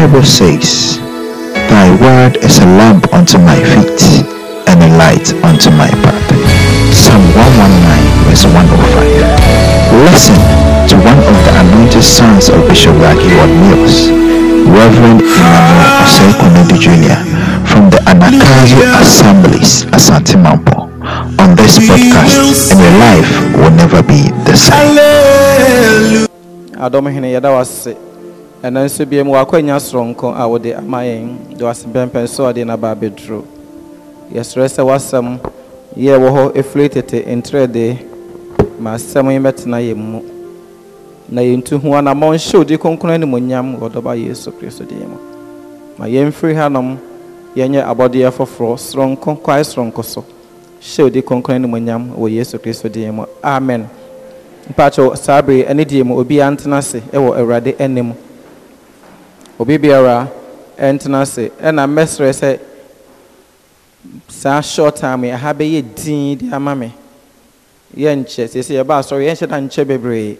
Bible says, Thy word is a lamp unto my feet and a light unto my path. Psalm 119 verse 105. Listen to one of the anointed sons of Bishop Raki Mills, Reverend Emmanuel Osei Jr. from the Anakazu Assemblies, at Santimampo, On this podcast, and your life will never be the same. And nso bia mu wakɔanya soronko a wode ama yɛn de wase pɛmpɛn so ɔde naba abɛduro yɛserɛ sɛ wasɛm yɛ wɔ hɔ ɛfiri na yɛntu ho anammɔ nhyɛ odi kronkron animonyam wɔ dɔba yesu kristo ma yɛmfiri hanom yɛnyɛ abɔdeɛ foforɔ soronko kwae soronko so hyɛ odi kronkron animonyam wɔ yesu kristo amen obi biara ena ase ɛna mɛsrɛ sɛ saa short time yi aha bɛyɛ din de ama me yɛnkyɛ sɛsɛ yɛba asɔre yɛnhyɛ da nkyɛ ye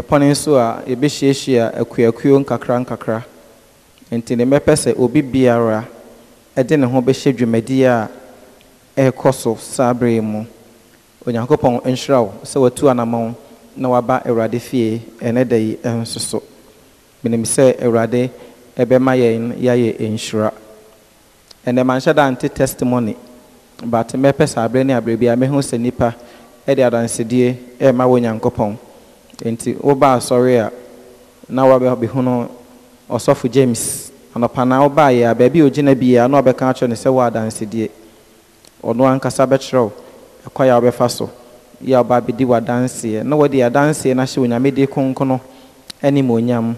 yɛpɔne nso a yɛbɛhyiahyia akuakuo nkakra nkakra nti ne mepe se obi biara ne ho bɛhyɛ dwumadie a ɛrekɔ so saa mu onyankopɔn watu anamɔn na waba awurade fie ɛnɛ da yi ɛnsoso menim sɛ awurade ɛbɛma yɛn yɛayɛ nhyira ɛnɛ manhyɛ da nte testimony but mɛpɛ saa aberɛ ne aberɛ bi a mɛhu sɛ nnipa ɛde e adansedie ɛrema wɔ nyankopɔn nti wobaa asɔre a na wabɛhunu ɔsɔfo james anɔpa na wobaa yɛ a baabi a ogyina biara na ɔbɛka akyerɛ no sɛ wɔ adansedie ɔno ankasa bɛkyerɛw ɛkwa a wobɛfa so yɛ a ɔba bɛdi w'adanseɛ na wɔde adanseɛ no ahyɛ onyamede konkono ne ma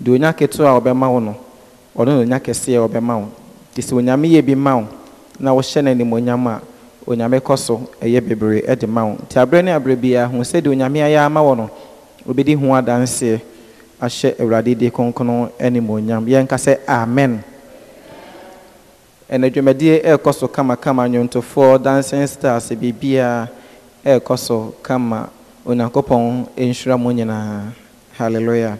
deɛ onya ketewa a ɔbɛma wo no ɔno na onya kɛseɛ ɔbɛma wo nti sɛ onyame yɛ bi ma wo na wohyɛ no animonyam a onyame kɔ so ɛyɛ bebree ma wo nti aberɛ ne aberɛ biara ho sɛdeɛ onyame ayɛ ama wo no obɛdi ho adanseɛ ahyɛ awurade de kronkron animonyam yɛnka sɛ amen ɛrekɔ so kamakama nnwontofoɔ stars ɛrekɔ so kama onyankopɔn nhyira mu nyinaa hallelujah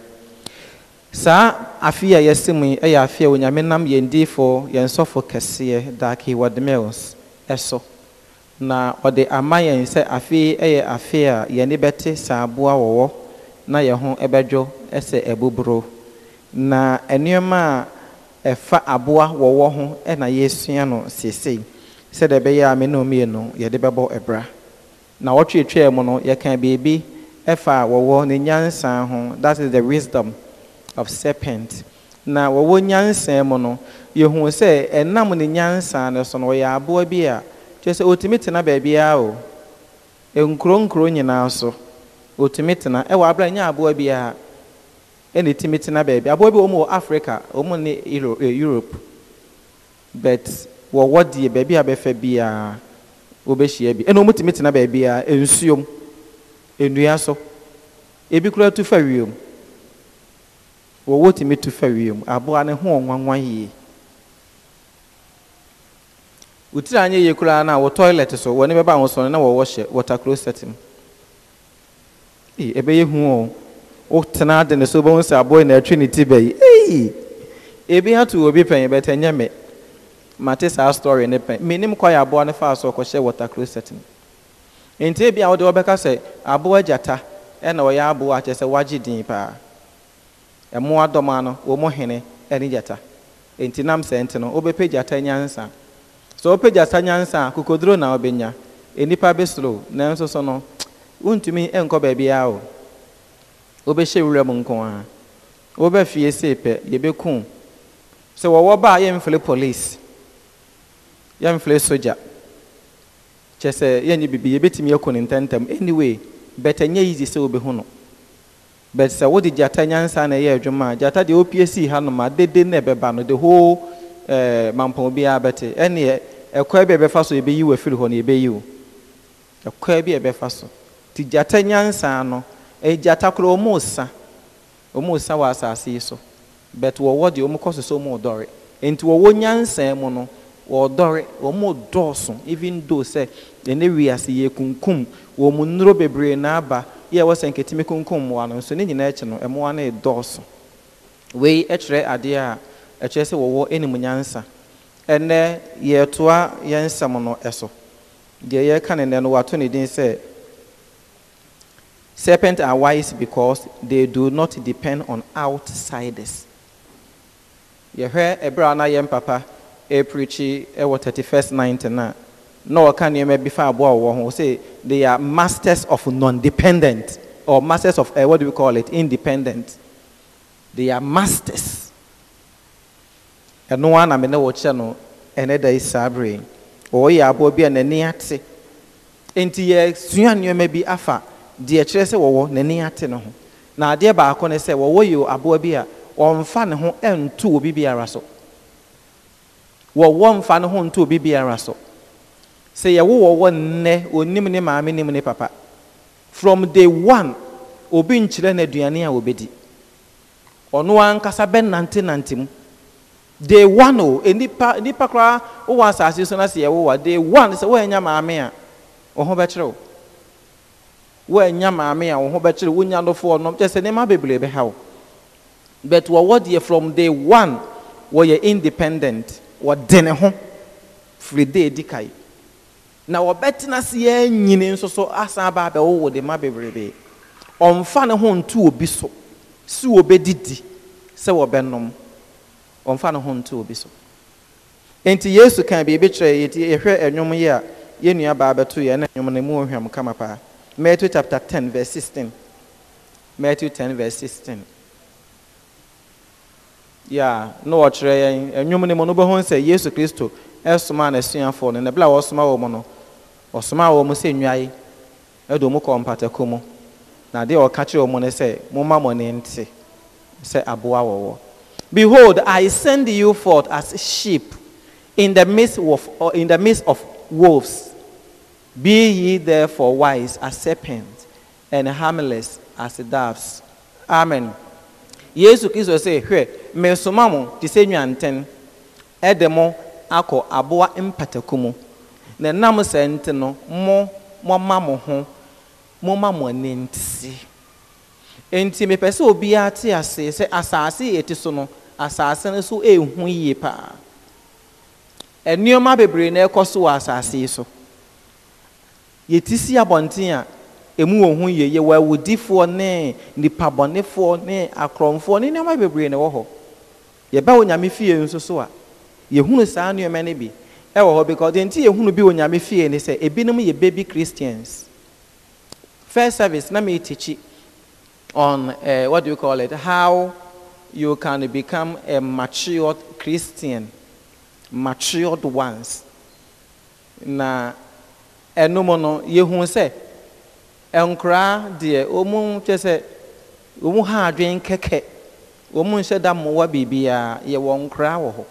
saa afi a yɛse mu yi yɛ afi a onyame nam yɛn diifoɔ yɛn sɔfo kɛseɛ daki wɔdemils ɛso na ɔde ama yɛn sɛ afe yɛ afi a yɛne bɛte saa aboa wɔwɔ na yɛn ho bɛdwo sɛ ɛboboro na nneɛma a ɛfa aboa wɔwɔ ho na yɛresua no seesei sɛdeɛ ɛbɛyɛ a me ne mmienu yɛde bɛbɔ ɛbra na wɔtwetwea mu no yɛka beebi ɛfa wɔwɔ ne nyansa ho that is the wisdom of serpent na wɔwɔ nyansa mu no yɛhu sɛ ɛnam ne nyansa no so no wɔyɛ aboa bi a kyerɛ sɛ ɔtumi tena baabiara o nkuro nkuro nyinaa so ɔtumi tena ɛwɔ abera nye aboa biara ɛna ɛtumi tena baabi aboa bi wɔn wɔ africa wɔn ne eh, europe but wɔwɔ deɛ baabi a bɛfɛ biara wɔbɛhyia bi ɛna wɔn tumi tena a nsuom nnua so ebi kura tu fa wiem. wɔwɔ wotumi tu fa wiem aboa ne ho ɔnwanwan yie wotiri anyɛ yie koraa no a wɔ toilet so wɔne bɛba ho sɔne na wɔwɔ hyɛ water closet mu ee ɛbɛyɛ hu o wotena ade ne so wobɛhu sɛ aboa na atwi ne ti bɛyi ee ebi ato obi pɛn bɛtɛ nyɛ me mate saa story ne pɛn menim kɔ yɛ aboa ne fa so ɔkɔhyɛ water closet mu nti ebi a wɔde wɔbɛka sɛ aboa gyata ɛna ɔyɛ aboa akyɛ sɛ wagye din paa ɛmo adɔm ano wɔn mo hene ɛne gyata nti nam sɛ nti no wobɛpɛ gyata nyansa sɛ wopɛ gyata nyansa a kokoduro na wobɛnya nnipa bɛsoro nanso so no wontumi nkɔ baabiara o wobɛhyɛ wura mu nko ara wobɛfie sei pɛ yɛbɛku sɛ wɔwɔ ba a yɛmfele police yɛmfele sogya kyɛ sɛ yɛnyɛ biribi yɛbɛtumi akɔ ne ntɛntɛm anyway bɛtɛ nyɛ easy sɛ wobɛhu no but sɛ wode gyata nyansa na ɛyɛ adwuma a gyata deɛ opie sii hanom a dede na ɛbɛba no de whole ɛɛ mampɔn biara bɛte ɛneɛ ɛkɔɛ bi a ɛbɛfa so yɛbɛyi wɔ firi hɔ no yɛbɛyi wo ɛkɔɛ bi a ɛbɛfa so ti gyata nyansa no ɛyɛ gyata koraa ɔmo sa ɔmo sa wɔ asaase yi so but wɔwɔ deɛ ɔmo kɔ so so ɔmo dɔre nti wɔwɔ nyansa mu no wɔdɔre ɔmo dɔɔso even though sɛ ɛne ase yɛ kunkum wɔn mu nnuro bebree na aba yɛ ɛwɔ sɛ nketimi kunkum mmoa no nso ne nyinaa akyi no mmoa no redɔɔso wei kyerɛ adeɛ a ɛkyerɛ sɛ wɔwɔ anim nyansa ɛnɛ yɛretoa yɛn nsɛm no ɛso deɛ yɛreka ne nnɛ no ne din sɛ serpents are wise because they do not depend on outsiders yɛhwɛ ɛberɛ a na yɛn papa aprikyi ɛwɔ 31st ninety nine no ɔka nneɛma bi fa aboa wɔwɔ say they are masters of non-dependent or masters of uh, what do we call it independent they are masters ɛno ara na me ne wɔkyɛ no ɛnɛ da yi saa bere wɔyɛ aboa bi a n'ani ate nti yɛsua nneɛma bi afa deɛ kyerɛ sɛ wɔwɔ n'ani ate no ho na say, baako you Abu wɔwɔ yɛ fan bi and two, ne be ntu obi biara one fan mfa and two, ntu be a so sɛ yɛwowɔ wɔ nnɛ onim ne maame nim ne papa from day one obi nkyerɛ no aduane a wɔbɛdi ɔno ankasa bɛnante nante mu day one o nipa nipa koraa wowɔ asase so na sɛ yɛwowɔ day one sɛ woanya maame a wo ho bɛkyerɛ wo woanya maame a wo ho bɛkyerɛ wonya nɔfoɔ ɔnom kyɛ sɛ nneɛma bebree bɛha wo but wɔwɔ deɛ from day one wɔyɛ independent wɔde ne ho firi day di kae na wɔbɛtena se yɛn nyini nso so asan aba abɛwowo oh, de ma bebrebe ɔmfa ne ho nto obi so si wɔbɛdidi sɛ wɔbɛnom ɔmfa ne ho nto obi so nti yesu kan biribi kyerɛ yɛti yɛhwɛ ɛnwom yi a yɛn nua baa bɛto yɛn na ɛnwom no mu ohwɛm kama paa matthew chapter ten verse sixteen matthew ten verse sixteen yà na wɔkyerɛ yɛn ɛnwom no mu no bɛho sɛ yesu kristo ɛsoma n'asuafoɔ no na ebile a wɔsoma wɔn no ɔsomaa wɔn sɛ nnwae ɛde wɔn kɔɔ mpatako mu na adeɛ ɔka kyerɛ wɔn no sɛ momma mo ne nte sɛ aboa wɔwɔ behold i send you forth as sheep in the midst of, uh, in the midst of wolves be ye therefore wise as serpents and harmless as doves amen yesu kristo sɛ hwɛ mesoma mo te sɛ nnwantɛn ɛde mo akɔ aboa mpatako mu na ɛnam saa nti no mo moma mo ho moma mo ani nti nti mepɛ sɛ obiara te ase sɛ asase yɛ ti so no asase no so ehu yie paa nneɛma bebree na ɛkɔ so wɔ asase yi so yɛti si abɔnten a emu wɔ ho yie yɛwɔ awudifoɔ ne nipabɔnefoɔ ne akorɔmfoɔ ne nneɛma bebree na ɛwɔ hɔ yɛbɛ wɔ nyame fie nso so a yɛhunu saa nneɛma no bi. ɛwɔ hɔ because deɛ nti yɛhunu bi wɔ nyame fie ne sɛ ebinom yɛ baby christians first service na mi teach on uh, what do you call it how you can become a matured christian matured ones na ɛnum no yɛhunu sɛ nkoraa deɛ wɔn kyɛ sɛ wɔn ha adwene kɛkɛ wɔn nhyɛ da mmoa biribiara yɛwɔ nkoraa wɔ hɔ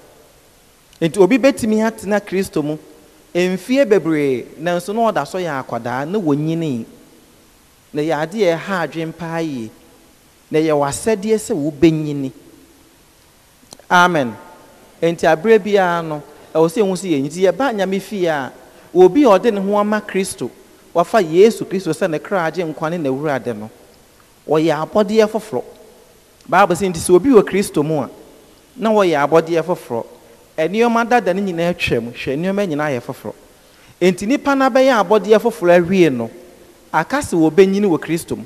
nti obi bɛtumi atena kristo mu mfie bebree nanso na ɔda so yɛ akwadaa na wɔnyini na yɛ adeɛ ɛha adwene paa yie na yɛ wasɛdeɛ sɛ wobɛnyini amen nti abere biara no ɛwɔ sɛ ehu sɛ yɛ nti yɛba nyame fie a obi a ɔde ne ho ama kristo wafa yesu kristo sɛ ne kra agye nkwa ne n'awurade no ɔyɛ abɔdeɛ foforɔ baabu sɛ nti sɛ obi wɔ kristo mu a na wɔyɛ abɔdeɛ foforɔ nneɛma dada no nyinaa twam hwɛ nneɛma nyinaa yɛ foforɔ enti nipa na abɔdeɛ foforɔ awie no akasi wɔ bɛnyini wɔ kristo mu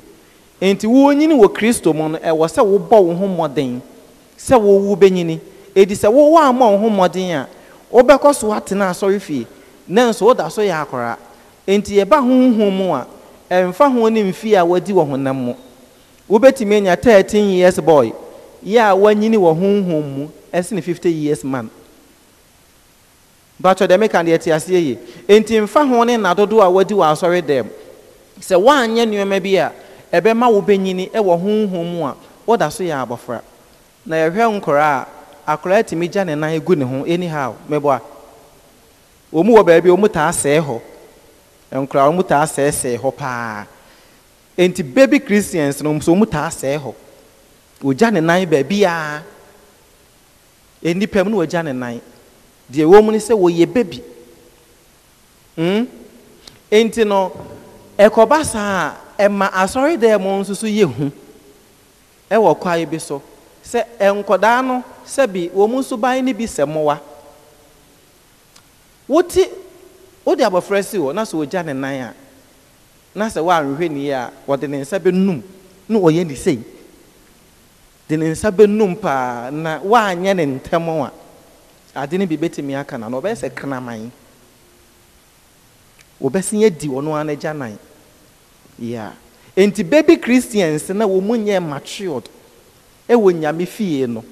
enti wɔnyini wɔ kristo mu no ɛwɔ sɛ wɔbɔ wɔn ho mmɔden sɛ wɔwu bɛnyini edi sɛ wɔwɔ ama wɔn ho mmɔden a wɔbɛkɔ so atena asɔre fie nanso wɔda so yɛ akɔra enti yɛba huhum mu a ɛnfa ho ne mfie a wɔdi wɔ honam mu wɔbɛtumi anya thirteen years boy yɛ a wɔnyini wɔ huhum mu ɛsene fifty years man batwɛ dɛ meka deɛ te aseɛ yie enti nfa ho ne nna dodoɔ a wadi wɔ asɔre dɛm sɛ woanyɛ nneɔma bi a ɛbɛma wobɛnyini ɛwɔ honhom mu a woda so yɛ abɔfra na yɛhwɛ nkọrọ a akɔraa tumi gya ne nan gu ne ho anyhow meboa wɔn mu wọ baabi wɔn mu taa sɛɛ hɔ nkɔraa wɔn mu taa sɛɛsɛɛ hɔ paa enti baby christians no nso wɔn mu taa sɛɛ hɔ wɔgya ne nan baabi a ah. nnipa mu no wɔgya ne nan deɛ wɔn mu no sɛ wɔyɛ baby hmm? nti no ɛkɔba saa ɛma asɔredan mu nso so yɛ hu ɛwɔ kwae bi so sɛ nkɔdaa no sɛbi wɔn nso ban no bi sɛ mmoa wɔte wɔde abɔfra si hɔ na sɛ wɔgya ne nan a na sɛ wɔanhwɛ ne yie a wɔde ne nsa bɛnum na wɔyɛ ne sei de ne nsa bɛnum paa na wɔanyɛ ne ntɛm a. ade no bi bɛtumi aka na na ɔbɛyɛ sɛ kraman wɔbɛsi adi ɔno ara n'agya nan yeah nti baby christians na wɔn mu nyɛ matured ɛwɔ nyame fie no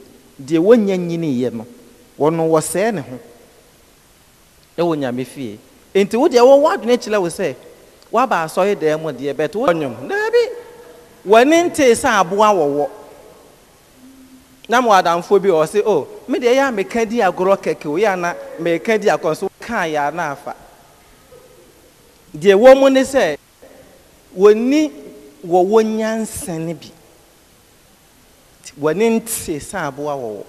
deɛ wɔnyɛ nyini yɛ no wɔn wɔsɛɛ ne ho ɛwɔ nyame fie nti wo deɛ wɔwɔ adwene kyerɛ wo sɛ waba asɔre dan mu deɛ bɛtɛ wɔn nyom daabi wɔne nte sɛ aboa wɔwɔ na mo adamfoɔ bi wɔ sɛ oh. me de ɛyɛ a meka di agorɔ kɛkɛ o yɛ ana meka di akɔ nso kaa yɛ afa deɛ wɔn mu ne sɛ wɔni wɔwɔ nyansa ne bi wɔne nte saa aboa wɔwɔ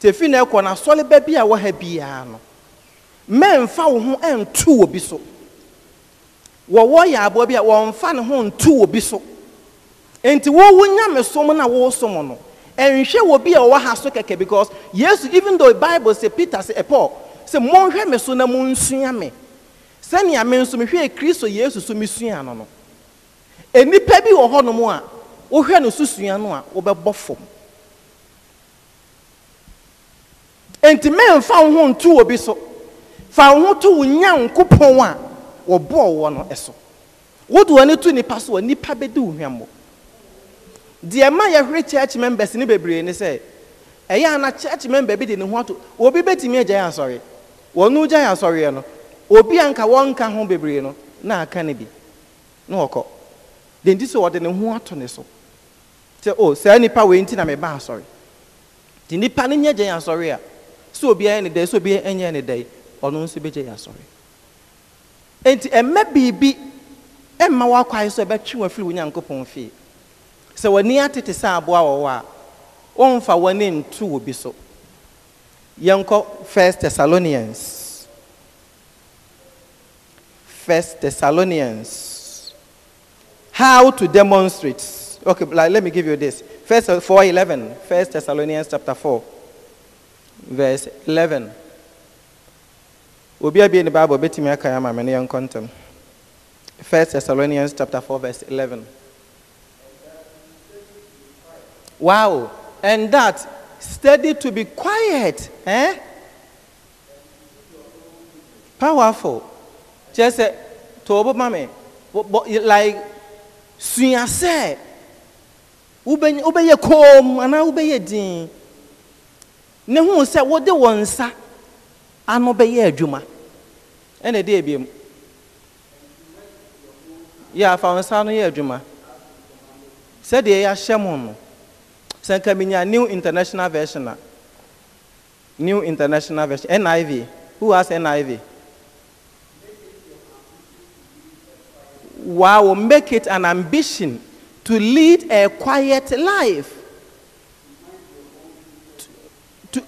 tefi na ɛkɔ na asɔle bɛ bi a wɔ ha biara no mmɛnfa wo ho ɛntu wɔ bi so wɔwɔ yɛ aboa bi a wɔnfa ne ho ntu wɔ bi so nti wɔwɔ nyame som na wɔsom no. ɛnhwɛ wɔ bi a ɔwɔ ha so kɛkɛ because yesu even though bible say peter say paul say mɔnhwɛ me so na monsua me sɛnea me nso mehwɛ kristo yesu so mesua no no enipa bi wɔ hɔnom a wohwɛ no so sua no a wobɛbɔ fam nti mɛmfa wo ho ntu obi so fa wo ho to wo nyankopɔn a wɔbɔɔ wɔ no so wode w'ani to nnipa so a nnipa bɛdi wo hwammɔ deɛ ma yɛhwere church members ne bebree ne sɛ ɛyɛ ana church member bi de ne ho ato obi bɛtumi agya yɛ asɔre wɔn gya yɛ asɔreɛ no obi a nka wɔnka ho bebree no na aka ne bi na wɔkɔ de nti so wɔde ne ho ato ne so sɛ o oh, saa nipa wei nti na meba asɔre de nipa ne nyɛ gya yɛ asɔre a sɛ obi ayɛ ne dɛ sɛ obi anyɛ ne dɛ ɔno nso bɛgya yɛ asɔre nti ɛmɛ biribi ɛmma wɔakɔ ayɛ sɛ ɛbɛtwe wɔn afiri wɔn nyankopɔn fie you are to sɛ aboa wɔ hɔ a wɔmfa w'ani ntu wɔ bi so Yanko, first thessalonians first thessalonians how to demonstrate okay like, let me give you this first uh, 411 first thessalonians chapter 4 verse 11 obi abie ne bible bɛtumi aka ama me ne yɛnkɔ ntɛm first thessalonians chapter 4 verse 11 Wow. And that, steady to be quiet. Eh? Powerful. Just say, Tobo mame. Like, suya se. Ubeye kom, ana ubeye din. Ne want sa, wode wonsa. Ano beye adwuma. Ene day ebiem. Yeah, fa wonsa no ye adwuma. Sɛdeɛ yɛahyɛ mo no sɛ nka new international version new international version niv who has niv wow make it an ambition to lead a quiet life to,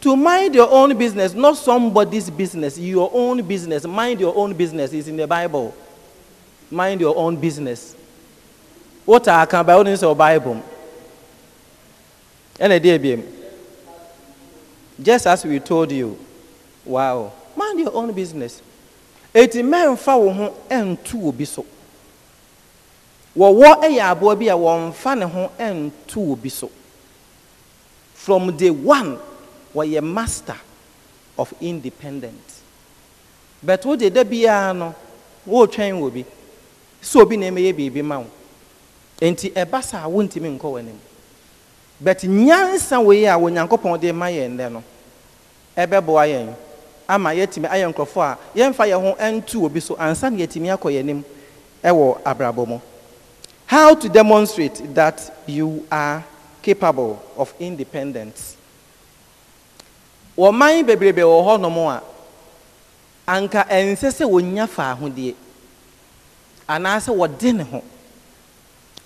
to, mind your own business, not somebody's business, your own business. Mind your own business is in the Bible. Mind your own business. What are I can buy in your Bible? And ɛdi ebiem just as we told you wow mind your own business eti mɛnfa wo ho ɛntu obi so wɔwɔ ɛyɛ aboa bi a wɔnfa ne ho ɛntu obi so from day one a master of independence but wo de da biara no wɔretwɛn wɔ bi so obi na ɛmɛyɛ biribi ma wo nti ɛba saa wɔntumi but nyansa wei a onyankopɔn de ma yɛn dɛ no ɛbɛboa yɛn ama yɛtumi ayɛ nkurɔfoɔ a yɛmfa yɛn ho ntu obi so ansa na yɛtumi akɔ yɛn anim ɛwɔ abrabɔ mu how to demonstrate that you are capable of independence wɔman bebrebe wɔ hɔnom a anka ɛnsɛ sɛ wɔnya faahodeɛ anaasɛ wɔde ne ho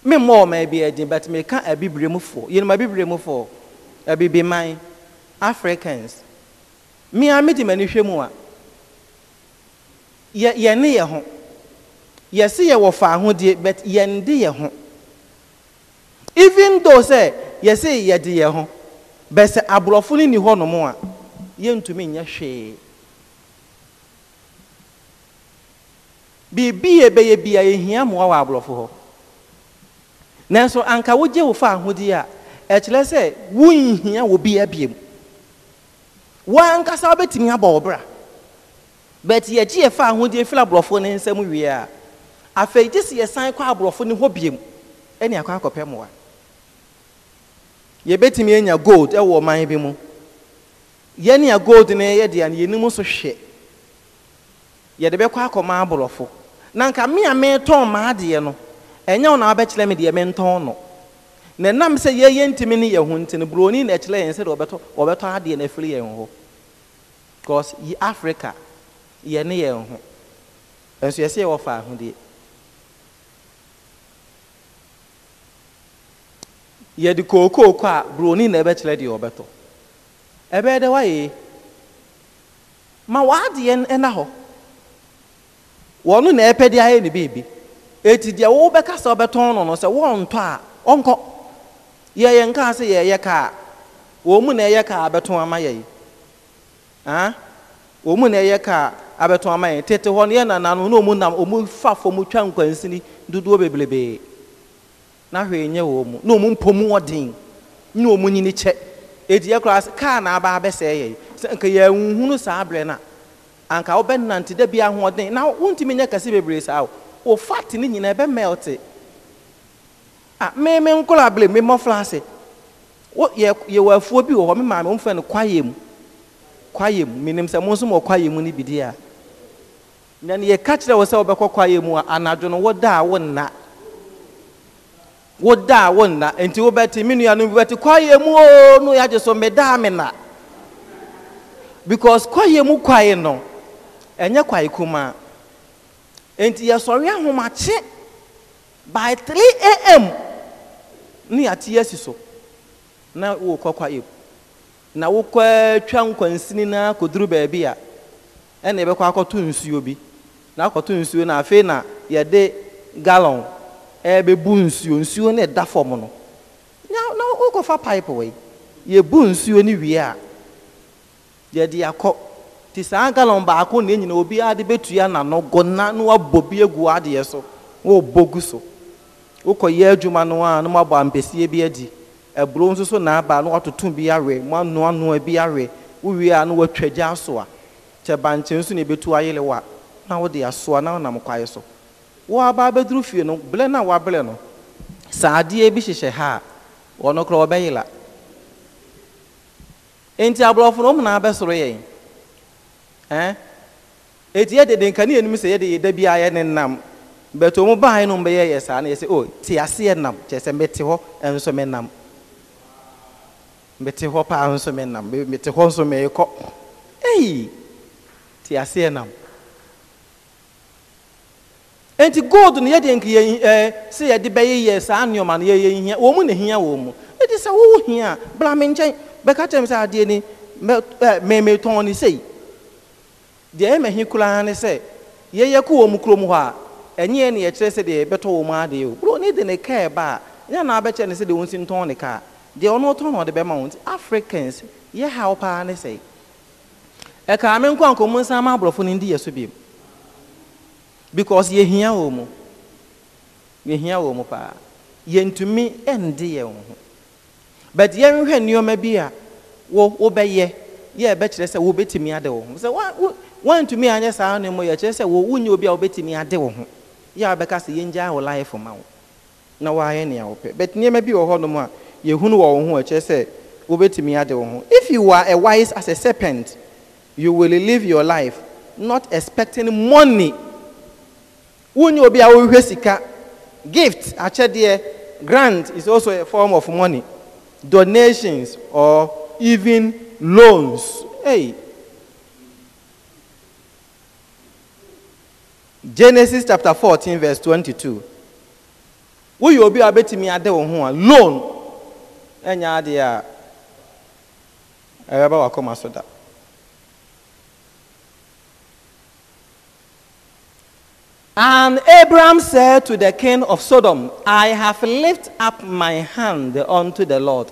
me mmɔ ɔma bi ɛdin but meka abibiremufo yɛnum abibiremufo abibiman africans mmea me di m'ani hwɛ mu a yɛ yɛne yɛ ho yɛsi yɛ wɔ fa ahodeɛ but yɛn de yɛ ho even though sɛ yɛsi yɛde yɛ ho but sɛ aborɔfo no ni hɔ nom a yɛntumi nyɛ hwee biribi yɛ bɛyɛ bi a yɛhia mmoa wɔ aborɔfo hɔ nanso anka wogye wo fa ahodeɛ a ɛkyerɛ sɛ wonhia wɔ bi abiem woankasa wobɛtumi abɔ wo bra but yɛgye yɛfa ahodeɛ firi aborɔfoɔ ne nsam wie a afei gye sɛ yɛsan kɔ aborɔfo ne hɔ biem ɛne akɔ akɔpɛ mmoa yɛbɛtumi anya gold ɛwɔ ɔman bi mu yɛne gold ne yɛde a yɛnim so hwɛ yɛde bɛkɔ akɔma aborɔfo na nka me a metɔn maadeɛ no ɛnyɛ wo na wabɛkyerɛ me deɛ mentɔn no na nam sɛ yɛyɛ ntumi ne yɛ ho nti buroni na ɛkyerɛ yɛn sɛdeɛ wɔbɛtɔ wɔbɛtɔ adeɛ no afiri yɛn hɔ because yi africa yɛne yɛn ho nso yɛsɛ yɛwɔ fa ahodeɛ yɛde kookooko a buroni na ɛbɛkyerɛ deɛ wɔbɛtɔ ɛbɛyɛ dɛ wayɛ ma w'adeɛ ɛna hɔ wɔn na ɛpɛ de ayɛ ne beebi. eti deɛ wobɛka sɛ wobɛtɔn no no sɛ wɔntɔ a ɔnkɔ yɛyɛ sɛ yɛyɛ kaa wɔn mu na ɛyɛ kaa abɛtɔn ama ya mu na ɛyɛ kaa abɛtɔn ama tete hɔ no na wɔn nam fa twa nkwansini dodoɔ bebrebee na hwee nyɛ wɔn mu na wɔn mpom wɔden na wɔn nyini kyɛ eti yɛ kaa na aba abɛsɛɛ sɛ nka wo fat ne nyinaa ɛbɛ mɛlte ah, a mmemme nkɔla abiri mmemme ɔfra ase wo yɛ yɛwɔ afuo bi wɔ hɔ me maame wɔmfa no kwaeɛ mu kwaeɛ mu menim sɛ mo nso mɔ kwaeɛ mu no bi di a na ne yɛka kyerɛ wo sɛ wobɛkɔ kwaeɛ mu a anadwo no woda a wo nna woda a wo nna nti wobɛte me nuanom bi bɛte kwaeɛ mu oo no yɛagye so medaa me na because kwaeɛ mu kwaye no ɛnyɛ kwaye kumaa nti yɛsɔre ahomakye by 3 am ne yɛate asi so na wokɔ kwaib na wokɔ twa nkwansini na kɔduru baabi a ɛna yɛbɛkɔ akɔto nsuo bi na akɔto nsuo na afei na yɛde gallon ɛbɛbu nsuo nsuo no ɛda fam no na wokɔfa pipe wei yɛbu nsuo no wie a yɛde akɔ nti saa galɔn baako na enyina obi ade betua n'ano gɔna na wabɔ bi egu adeɛ so wɔrebɔ ogu so wokɔyɛ adwuma no a na wabɔ ampesie bi adi aburo nso na-aba na watoto bi awɛ mu anoa noa bi awɛ wowie a na watwa gya asoa kyɛ bankyɛn nso na ebetu ayele wa na wode asoa na wonam kwae so wɔaba abɛduru fie no blɛ na wabrɛ no saa adeɛ bi hyehyɛ ha a wɔno koraa wɔbɛyela nti aborɔfo no na nyinaa bɛsoro yɛn Eh? eti yɛ dede nkanea nim sɛ yɛde yɛda bi a yɛ ne nam bɛtɛ wɔn baa no bɛyɛ yɛ saa na yɛ sɛ o te aseɛ nam kyerɛ sɛ mɛte hɔ nso mɛ nam mɛte hɔ paa nso mɛ nam mɛte hɔ nso mɛ kɔ eyi te aseɛ nam nti gold no yɛde nkeɛ ɛɛ eh, sɛ yɛde bɛyɛ yɛ saa nneɛma no yɛyɛ hia wɔn mu na hia wɔn mu eti sɛ wɔwɔ hia blamɛ nkyɛn bɛka kyerɛ mi sɛ adeɛ ni mɛ ɛɛ mɛmɛtɔn ni sɛyi. deɛ ɛma hi koraa ne sɛ yɛyɛ kɔ wɔ mu kurom hɔ a ɛnyɛ ne yɛkyerɛ sɛ deɛ yɛbɛtɔ wɔ mu adeɛ o bro ne de ne kaa ba a nyɛ na abɛkyɛ ne sɛ deɛ wɔnsi ntɔn ne kaa deɛ ɔno ɔtɔn na ɔde bɛma wɔn ti africans yɛ haw paa ne sɛ ɛkaa me nkɔ nkɔmmu nsa ama aborɔfo no ndi yɛ so biem because yɛhia wɔ mu yɛhia wɔ mu paa yɛntumi ɛndi yɛn ho but yɛnhwɛ nneɛma bi a wɔ wobɛyɛ yɛ ɛbɛkyerɛ sɛ wobɛtumi ada wɔ ho sɛ woantumi anyɛ saa no mmɔ yɛkyerɛ sɛ wonya obi a wobɛtumi ade wo ho yɛ a wobɛka sɛ yɛngyaa wo life ma wo na woayɛ nea wopɛ but nneɛma bi wɔ hɔ nom a yɛhunu wɔ wo ho ɛkyerɛ sɛ wobɛtumi ade wo ho if you are a wise as a serpent you will live your life not expecting money wonya obi a wohwehwɛ sika gift akyɛdeɛ grant is also a form of money donations or even loans hey genesis chapter 14 verse 22 woyɛ obi a wobɛtumi ade wo ho a loan ɛnyɛ adeɛ a ɛbɛba wakoma so da And Abram said to the king of Sodom, I have lifted up my hand unto the Lord,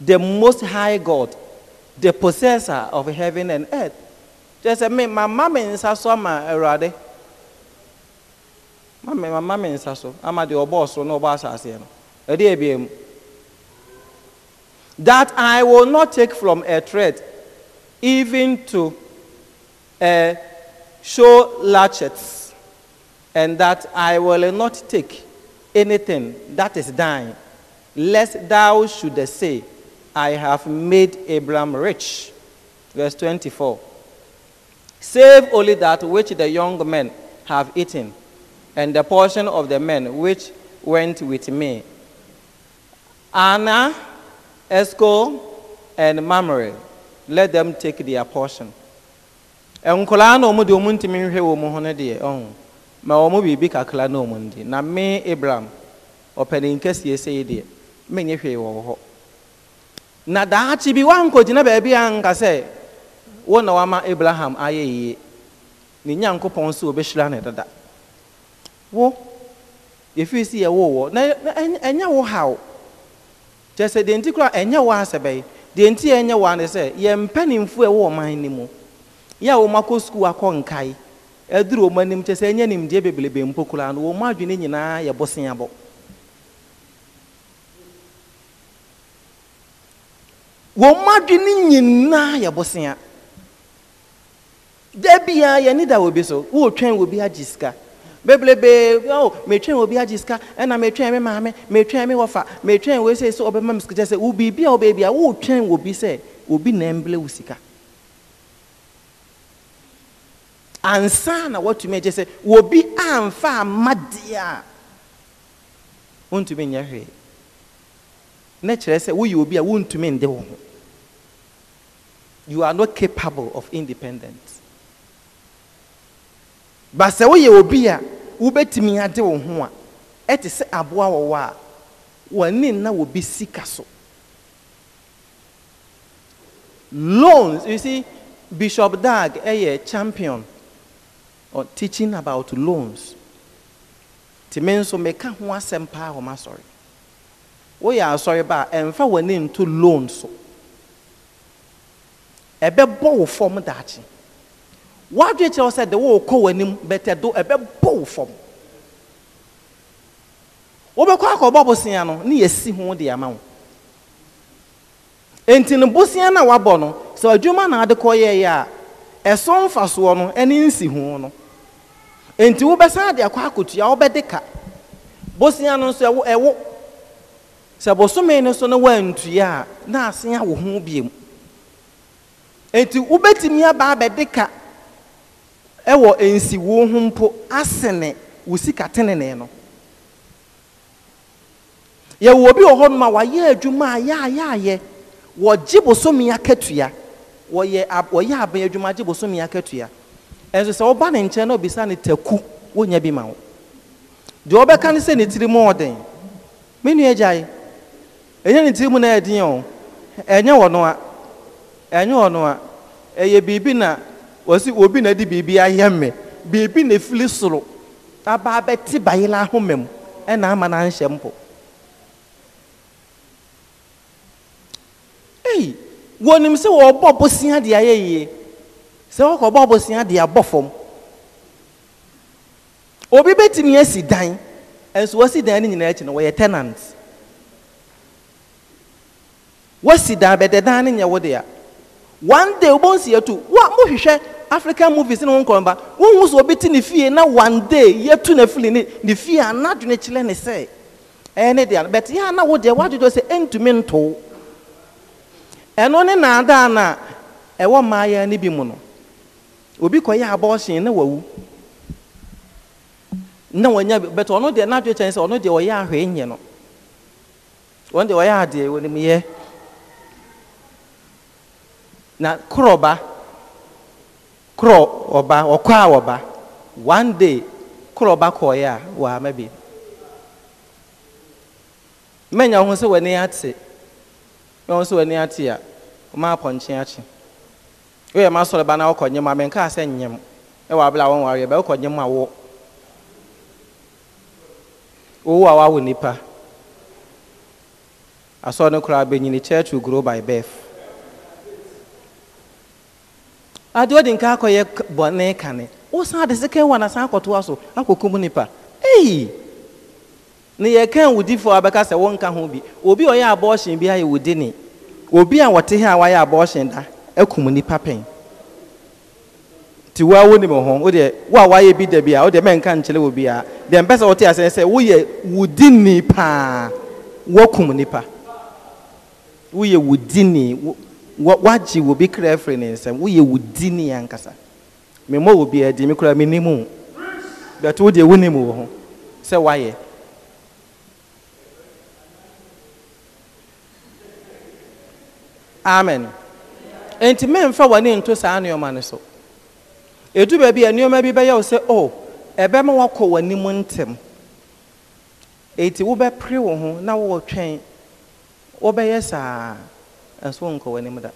the most high God, the possessor of heaven and earth. Just me, my mama in Sasoma, Erade mama me nsa so asase no that I will not take from a thread even to a eh, show latchets and that I will not take anything that is thine lest thou should say I have made Abram rich verse 24 save only that which the young men have eaten and the portion of the men which went with me. Anna, Esco, and Mamre, let them take their portion. nkwalaa na ɔmo deɛ ɔmo ntumi nhwɛ wɔn ho no deɛ ɔho oh. ma ɔmo biribi kakra na ɔmo ndi na abraham ɔpanin kɛseɛ sei deɛ menyɛ hwee wɔ hɔ na daakye bi wankɔgyina baabi a nka sɛ wo na wama abraham ayɛ yie ne nyankopɔn nso wo yɛfiri si yɛwo wɔ na ɛnyɛ wo haw kyerɛ sɛ deɛ nti koraa ɛnyɛ wo asɛ bɛyɛ deɛ nti ɛnyɛ wo ano sɛ yɛmpanimfoɔ ɛwɔ ɔman no mu yɛ a wɔn akɔ sukuu akɔ nkae ɛduru wɔn anim kyerɛ sɛ ɛnyɛ nimdeɛ bebrebe mpo koraa no wɔn adwene nyinaa yɛ boseabɔ wɔn adwene nyinaa yɛ bosea da biara yɛne da wɔ bi so wɔretwɛn wɔ bi agye sika bebrebe o metwɛn obi agye sika ɛna metwɛn me maame metwɛn me wɔfa metwɛn wei sɛ sɛ ɔbɛma me sika kyɛ sɛ wo biribi a wobɛɛ bi obi sɛ obi na ɛmblɛ wo sika ansa na watumi agye sɛ obi amfa amma deɛ a wontumi nyɛ hwee na kyerɛ sɛ woyɛ obi a wontumi nde wo ho you are not capable of independence ba sɛ woyɛ obi a wobɛtumi ade wo ho a ɛte sɛ aboa wɔwɔ a wɔne na wɔbi sika so loans you see bishop dag ɛyɛ champion on teaching about loans te me nso meka ho asɛm paa wɔn asɔre woyɛ asɔre ba a ɛmfa wɔn ani nto loan so ɛbɛbɔ wo fam daakye. wadwe kyerɛ sɛ de wo kɔ w'anim bɛtɛ do bụ wo fam wobɛkɔ akɔbɔ bosea no ne yɛsi ho de ama wo enti no bosea no a wabɔ no sɛ adwuma na ade kɔyɛeɛ a ɛso mfasoɔ no ɛne nsi ho no enti wobɛsan de akɔ akɔtua wobɛde ka bosea no nso ɛwo ɛwo sɛ bosome no so no woantua a na asen awo ho biom enti wobɛtumi aba abɛde ka ɛwɔ nsiwuo ho mpo asene wo sika tenene no yɛwɔ obi wɔ hɔ nom a wayɛ adwuma a yɛayɛayɛ wɔgye bosomi akatua wɔyɛ wɔyɛ aban adwuma gye bosomi akatua ɛnso sɛ wɔba ne nkyɛn na obisa ne taku wonya bi ma wo deɛ ɔbɛka ne sɛ ne tiri mu ɔden me nua gyae ɛnyɛ ne tiri mu na ɛden o ɛnyɛ wɔ no a ɛnyɛ wɔ no ɛyɛ biribi na wɔsi obi na di biribi ayɛ mɛ biribi na efili soro aba abɛti bayela ahoma mu ɛna ama na nhyɛ mpo eyi wɔnim sɛ wɔbɔ bosia de ayɛ yie sɛ wɔkɔbɔ bosia de abɔ fam obi bɛtumi asi dan nso wɔsi dan no nyinaa akyi no wɔyɛ tenant wɔsi dan bɛdɛ dan no nyɛ wo dea one day wɔbɔ nsia tu wa mohwehwɛ. african movies ne ho nkɔmba wohu sɛ obi ti ne fie na one day yɛtu eh, ne fili ne ne fie a na adwene kyerɛ ne sɛ ɛyɛ ne deɛ but yɛ a na wo deɛ woadwodwo sɛ ɛntumi nto ɛno ne naadaa no a ɛwɔ mmaayɛ no bi mu no obi kɔyɛ abɔɔhyen na wawu na wanya but ɔno deɛ n'adwene kyerɛ sɛ ɔno deɛ ɔyɛ ahwɛ nyɛ no ɔno deɛ ɔyɛ adeɛ wɔ ne mu yɛ na korɔba korɔ ɔba ɔkɔ a ɔba one day korɔ ɔba kɔɔɛ a wɔama bi mmɛnya ho sɛ w'ani ate mmɛnya ho sɛ w'ani ate a ɔma apɔnkye akye woyɛ ma sɔrɔ ba na ɔkɔ nyɛm a mɛnka sɛ nyɛm ɛwɔ e abla wɔn wɔn ayɛ bɛ ɔkɔ nyɛm a wɔ owu a wawo nipa asɔrɔ no koraa bɛnyini church will grow by birth. ade odi nka akɔyɛ bɔne kane wosan ade sika wa na san akɔtoa so akɔkum nipa eyi ne yɛ kan wudifoɔ abɛka sɛ wɔnka ho bi obi a ɔyɛ abɔɔhyɛn bi ayɛ wudi ne obi a wɔte ha a wayɛ abɔɔhyɛn da akum nipa pɛn ti wa wo nim ho wo deɛ wo a wayɛ bi da bi a wo deɛ mɛnka nkyerɛ wo bi a deɛ mpɛ sɛ wɔte asɛn sɛ woyɛ wudi ni paa wɔkum nipa woyɛ wudi ni wo. wagye obi kra afiri ne nsɛm woyɛ wo di ne yɛ ankasa memmɔ obi adi me kora menim wo but wodeɛ wonim wɔ ho sɛ woayɛ amen enti memfa w'ani nto saa nneɔma no so ɛdu baabi a nneɔma bi bɛyɛ wo sɛ o oh, ɛbɛma woakɔ w'anim ntɛm enti wobɛpere wo ho na wowɔ twɛn wobɛyɛ saa a suwan ko wani muda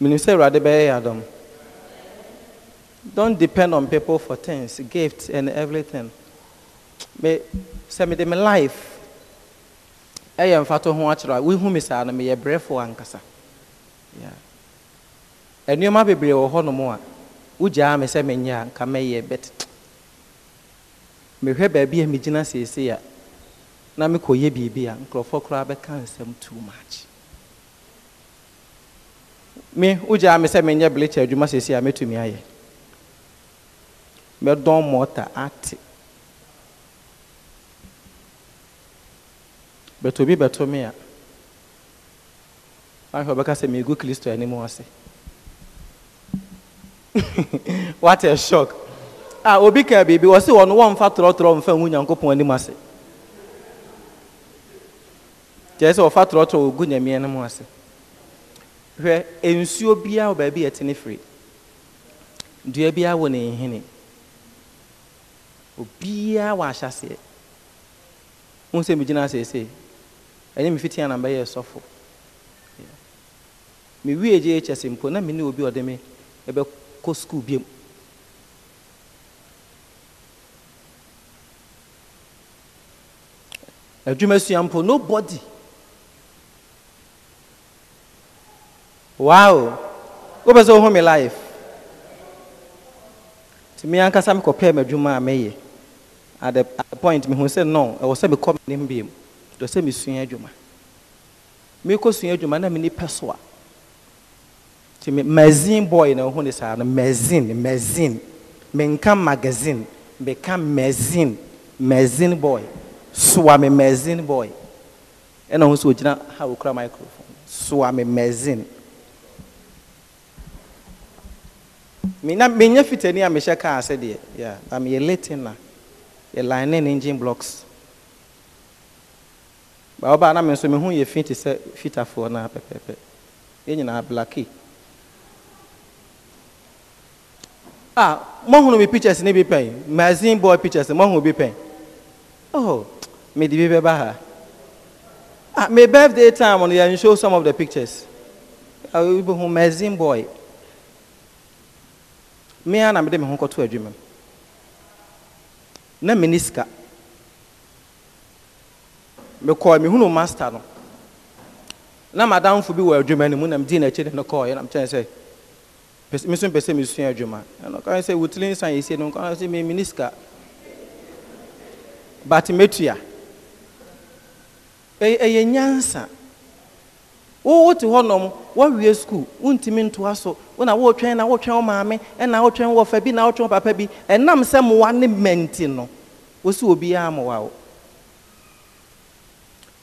menim sɛ awurade bɛyɛ yɛ Adam. don't depend on people for things gifts and everything me sɛ mede me life ɛyɛ mfato ho akyerɛ a wohu me saa no meyɛ brɛfo ankasa nneɛma be wɔ hɔnom a Uja me sɛ menyɛ a nka mɛyɛ bɛt mehwɛ baabi a megyina si a na mekɔyɛ biribi a nkurɔfoɔ koraa bɛka nsɛm too much me wogyaa me sɛ menyɛ blekyɛ adwuma seesei a mɛtumi ayɛ mɛdɔn mɔta ate bɛtɔ bi bɛto me a ahwɛ ɔbɛka sɛ megu kristo anim ase what a shock a obi ka biribi wɔ se wɔno wɔmfa torɔtorɔ mfa hu nyankopɔn anim ase kyerɛ sɛ wɔfa torɔtorɔ wɔgu nyameɛ no mu ase hwɛ nsuo biara wɔ baabi yɛte ne firi dua biara wɔ ne nhene obiara wɔ ahyɛseɛ wọn sɛ megyina asese ɛnyɛ mefiti anam bɛyɛ sɔfo mewie gye kyɛse mpo na mene obi ɔde me ɛbɛkɔ sukuu biam adwuma sua mpo nobody wow wopɛ sɛ wohu me life nti me ankasa mekɔpɛɛ m'adwuma a mɛyɛ at the, at the point mehu sɛ no ɛwɔ sɛ mekɔ menem biam dɔ sɛ mesua adwuma mekɔsua adwuma na meni pɛ so a nti magazine boy na wohu ne saa no magazine magazine menka magazine meka magazine magazine boy soa me magazine boy ɛna ho sɛ ogyina ha wokura microphone soa me magazine menya menya fitani a mehyɛ kaa ase deɛ yeah na meyɛ late na yɛ line ne engine blocks baa ɔbaa na me nso me ho yɛ fi te sɛ fitafoɔ na pɛpɛɛpɛ yɛn nyinaa blaki a mɔhunu mi pictures ne bi pɛn magazine boy pictures mɔhunu bi pɛn oh me de bi bɛba ha ah my birthday time no yɛn show some of the pictures ah obi hu magazine boy. mmea na mede me ho kɔto adwuma na mene sika mekɔɔ mehunu master no na madamfo bi wɔ adwuma no mu na medi n'akyi de no kɔɔyɛ na mekyɛn sɛ me nso mpɛ sɛ mesua adwuma ɛno ɔkae sɛ wotiri nsan yɛsie no nkɔa sɛ memene sika but mɛtua ɛyɛ nyansa e, e, wowote hɔnom woawie skul wontumi ntoa so wona wotwɛn na wotwɛn wo maame ɛna wotwɛn wɔfa bi na wotwɛn papa bi ɛnam sɛ mmoa ne mɛnti no wo sɛ wo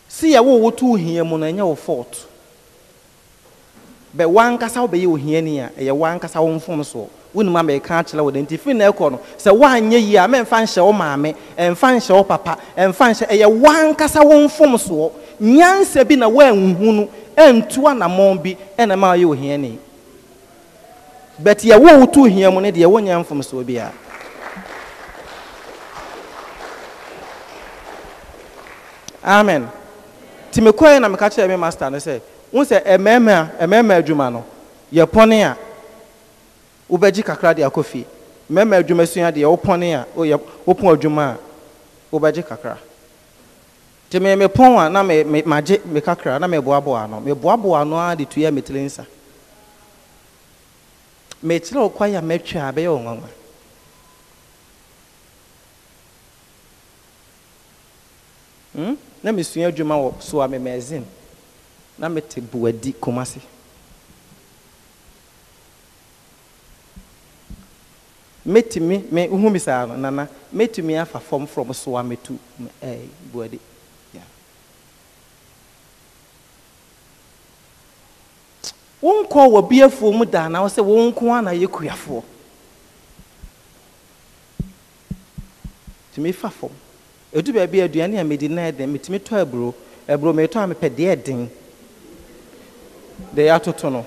si yɛ wo woto wo hia mu no ɛnyɛ wo bɛ wankasa ohiani a ɛyɛ wankasa wo amɛka akyerɛ wo na ɛkɔ no sɛ woanyɛ yie a mɛmfa nhyɛ wo maame ɛmfa nhyɛ wo papa ɛmfa nhyɛ ɛyɛ wankasa wo nyansa bi na woanhu no ɛntu anammɔn bi ɛna ma ayɛ ohiani but yɛwo wo to hia mu no deɛ wonyɛ mfomsoɔ biara amen nti mekɔɛ na meka kyerɛ me master no sɛ wo sɛ ɛmɛɛma ɛmɛɛma adwuma no yɛpɔne a wobɛgye kakra de akɔ fie mɛɛma adwuma sua deɛ wopɔne a wopɔ adwuma a wobɛgye kakra nti me mepɔn a na me me kakra na meboaboa ano meboaboa ano ara de tuiɛ metire nsa mekyerɛ wo kwae a mɛtwa a bɛyɛ yo nwanwa hmm? na mesua adwuma wɔ so a na mete buadi kumase mɛtumi me wohu me saa nana mɛtumi afa fam from so a metu eh, buadi wonkɔ wɔ bi afuo mu daa na wɔsɛ wɔn nko ara na yɛ kuafoɔ tumi fa fam edu baabi aduane a medi nan den metumi tɔ aburo aburo metɔ a mepɛ deɛ den deɛ atoto no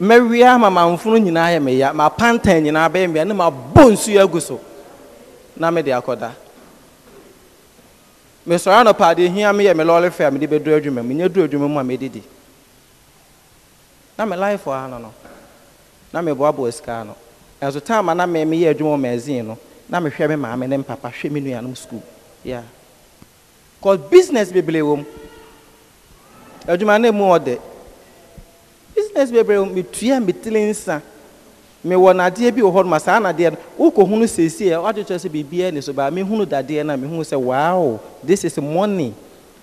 mɛwia ma mamfono nyinaa yɛ meya ma pantan nyinaa bɛyɛ meya ne ma bɔ nsuo agu so na mede akɔda mesɔre anɔpa ade hia meyɛ me lɔɔre fɛ a mede bɛduru adwuma mu nyɛ duru adwuma mu a didi. na me life wɔ ha no no na meboaboa sika no ɛnso time a na me meyɛ adwuma wɔ magazine no na mehwɛ me maame ne mpapa hwɛ me nuanom school yeah cause business bebree wɔ mu adwuma no mu ɔde business bebree wɔ mu metua metiri nsa mewɔ nadeɛ bi wɔ hɔ ma saa nadeɛ no wokɔhunu seesie a woadwekyerɛ sɛ biribiaa ni so baa mehunu dadeɛ no a mehunu sɛ wow this is money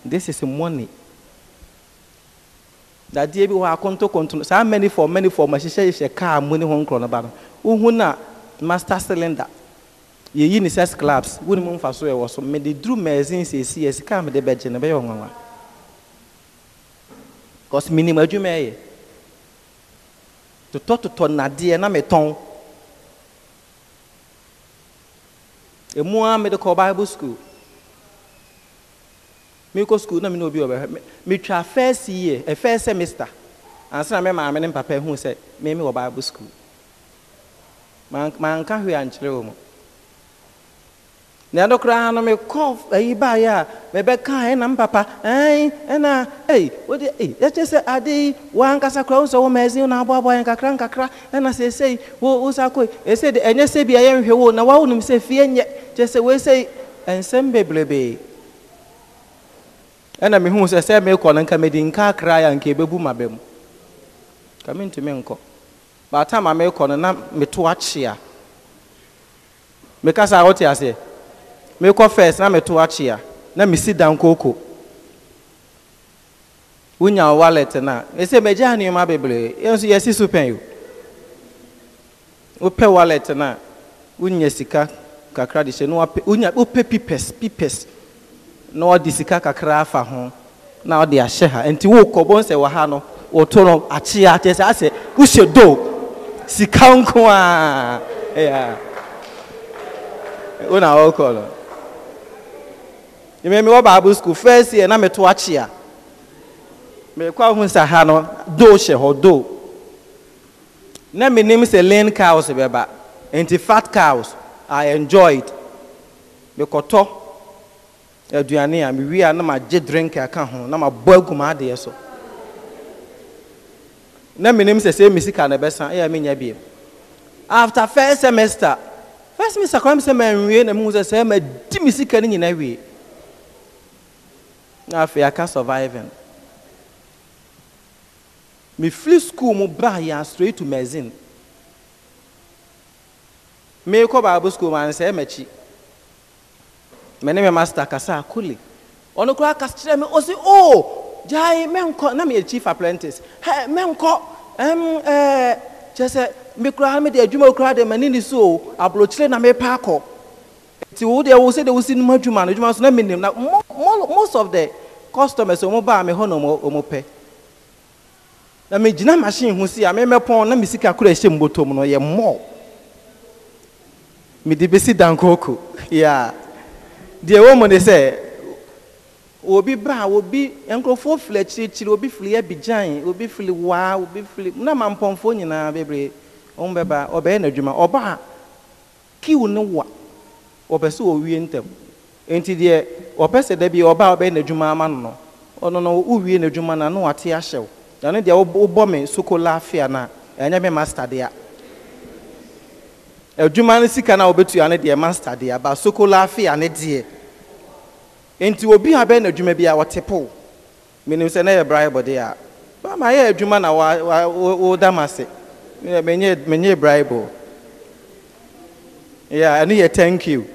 this is money dadeɛ bi wɔ akontokonto saa manifom manifom ahyehyɛhyehyɛ kaa mu ne ho nkorɔ no ba no wohu na master cylinder yɛyi ne sɛ sclaps wonim mfa so ɛwɔ so mede duru magazine seesie sika a mede bɛgye no bɛyɛ ɔnwanwa bcause menim adwuma ɛyɛ totɔtotɔ nadeɛ na metɔn emu a mede kɔ bible school mekɔ school na mene obi wɔbɛhwɛ metwa first year a eh, first semester ansa na me maame ne papa hu sɛ meme wɔ bible school manka hwee ankyerɛ wɔ mu na ɛno koraa no me mekɔ ayi baeɛ a mebɛka ɛna mpapa ɛn ɛna ei wode ei ɛkyɛ sɛ ade yi woankasa koraa wo sɛ wo maazin na aboaboa yɛn kakra nkakra ɛna seesei wo wo sa kɔ ese de ɛnyɛ sɛ bia yɛnhwɛ wo na woawo nim se fie nyɛ kyɛ sɛ woesei ɛnsɛm bebrebee ɛna mehuu sɛ sɛ mekɔ no nka medi nka akra yɛ anka ɛbɛbu ma bɛ mu ka mentumi nkɔ baatama mekɔ no na meto akye a mekasa wote aseɛ mekɔ first na meto akyi na mesi dankoko wonya wo wallet n'a a ɛsɛ magyaa nneɔma bebree yɛ nso yɛsi so pɛn o wopɛ wallet no wonya sika kakra de hyɛ na wonya wopɛ pipɛs pipɛs na wɔde sika kakra afa ho na wɔde ahyɛ ha nti wokɔbɔ nsɛ wɔ ha no wɔto no akyea kyɛ sɛ asɛ wohyɛ do sika nko a ɛyɛ a wona wɔkɔ no mmemme mi wɔ bible school first year na meto akyi a mmekɔ ahu sa ha no do hyɛ hɔ do na menim sɛ lean cows bɛba nti fat cows i enjoyed mekɔtɔ aduane a mewie a na magye drink aka ho na mabɔ agu ma adeɛ so na menim sɛ sɛ mesika na ɛbɛsa ɛyɛ menya biem after first semester first semester kora me sɛ manwie na mehu sɛ sɛ madi me sika no nyina wie afei aka surviving mefiri school mu baa yɛn straight to magazine meekɔ bible school mu ansɛe m'akyi me ne me master kasa akole ɔno koraa kasa kyerɛ me ɔsi o oh, gyae menkɔ na chief apprentice hɛ menkɔ ɛm ɛɛ kyerɛ sɛ me koraa me de adwuma koraa de m'ani ni so aburokyire na mepa akɔ. nti wo deɛ wo sɛ deɛ wosi no mu adwuma no adwuma so na menim na most of the customers ɔmo baa me hɔ na ɔmo pɛ na megyina machine ho si a memɛpɔn na me sika koro ɛhyɛ mu bɔtɔm no yɛ mɔɔ mede bɛsi dankooko ya deɛ wɔ mu ne sɛ obi ba obi nkurɔfoɔ fili akyirikyiri obi fili abigyan obi fili waa obi fili na ma mpɔnfoɔ nyinaa bebree wɔn bɛba ɔbɛyɛ n'adwuma ɔbaa kiw ne wa. wɔpɛ sɛ wɔwie ntɛm nti deɛ wɔpɛ sɛ da bi ɔbaa ɔbɛyɛ n'adwuma ama no no ɔno no wowie n'adwuma no na wate ahyɛ wo na no deɛ wobɔ me sokola afia no a ɛnyɛ me master dea adwuma no sika no a wobɛtua no deɛ master dea ba sokola afia ne deɛ nti obi a bɛyɛ n'adwuma bi a wɔte po menim sɛ na yɛ braibɔ deɛ a bama yɛ adwuma na woda m ase menyɛ braibɔ Ya ɛno yɛ thank you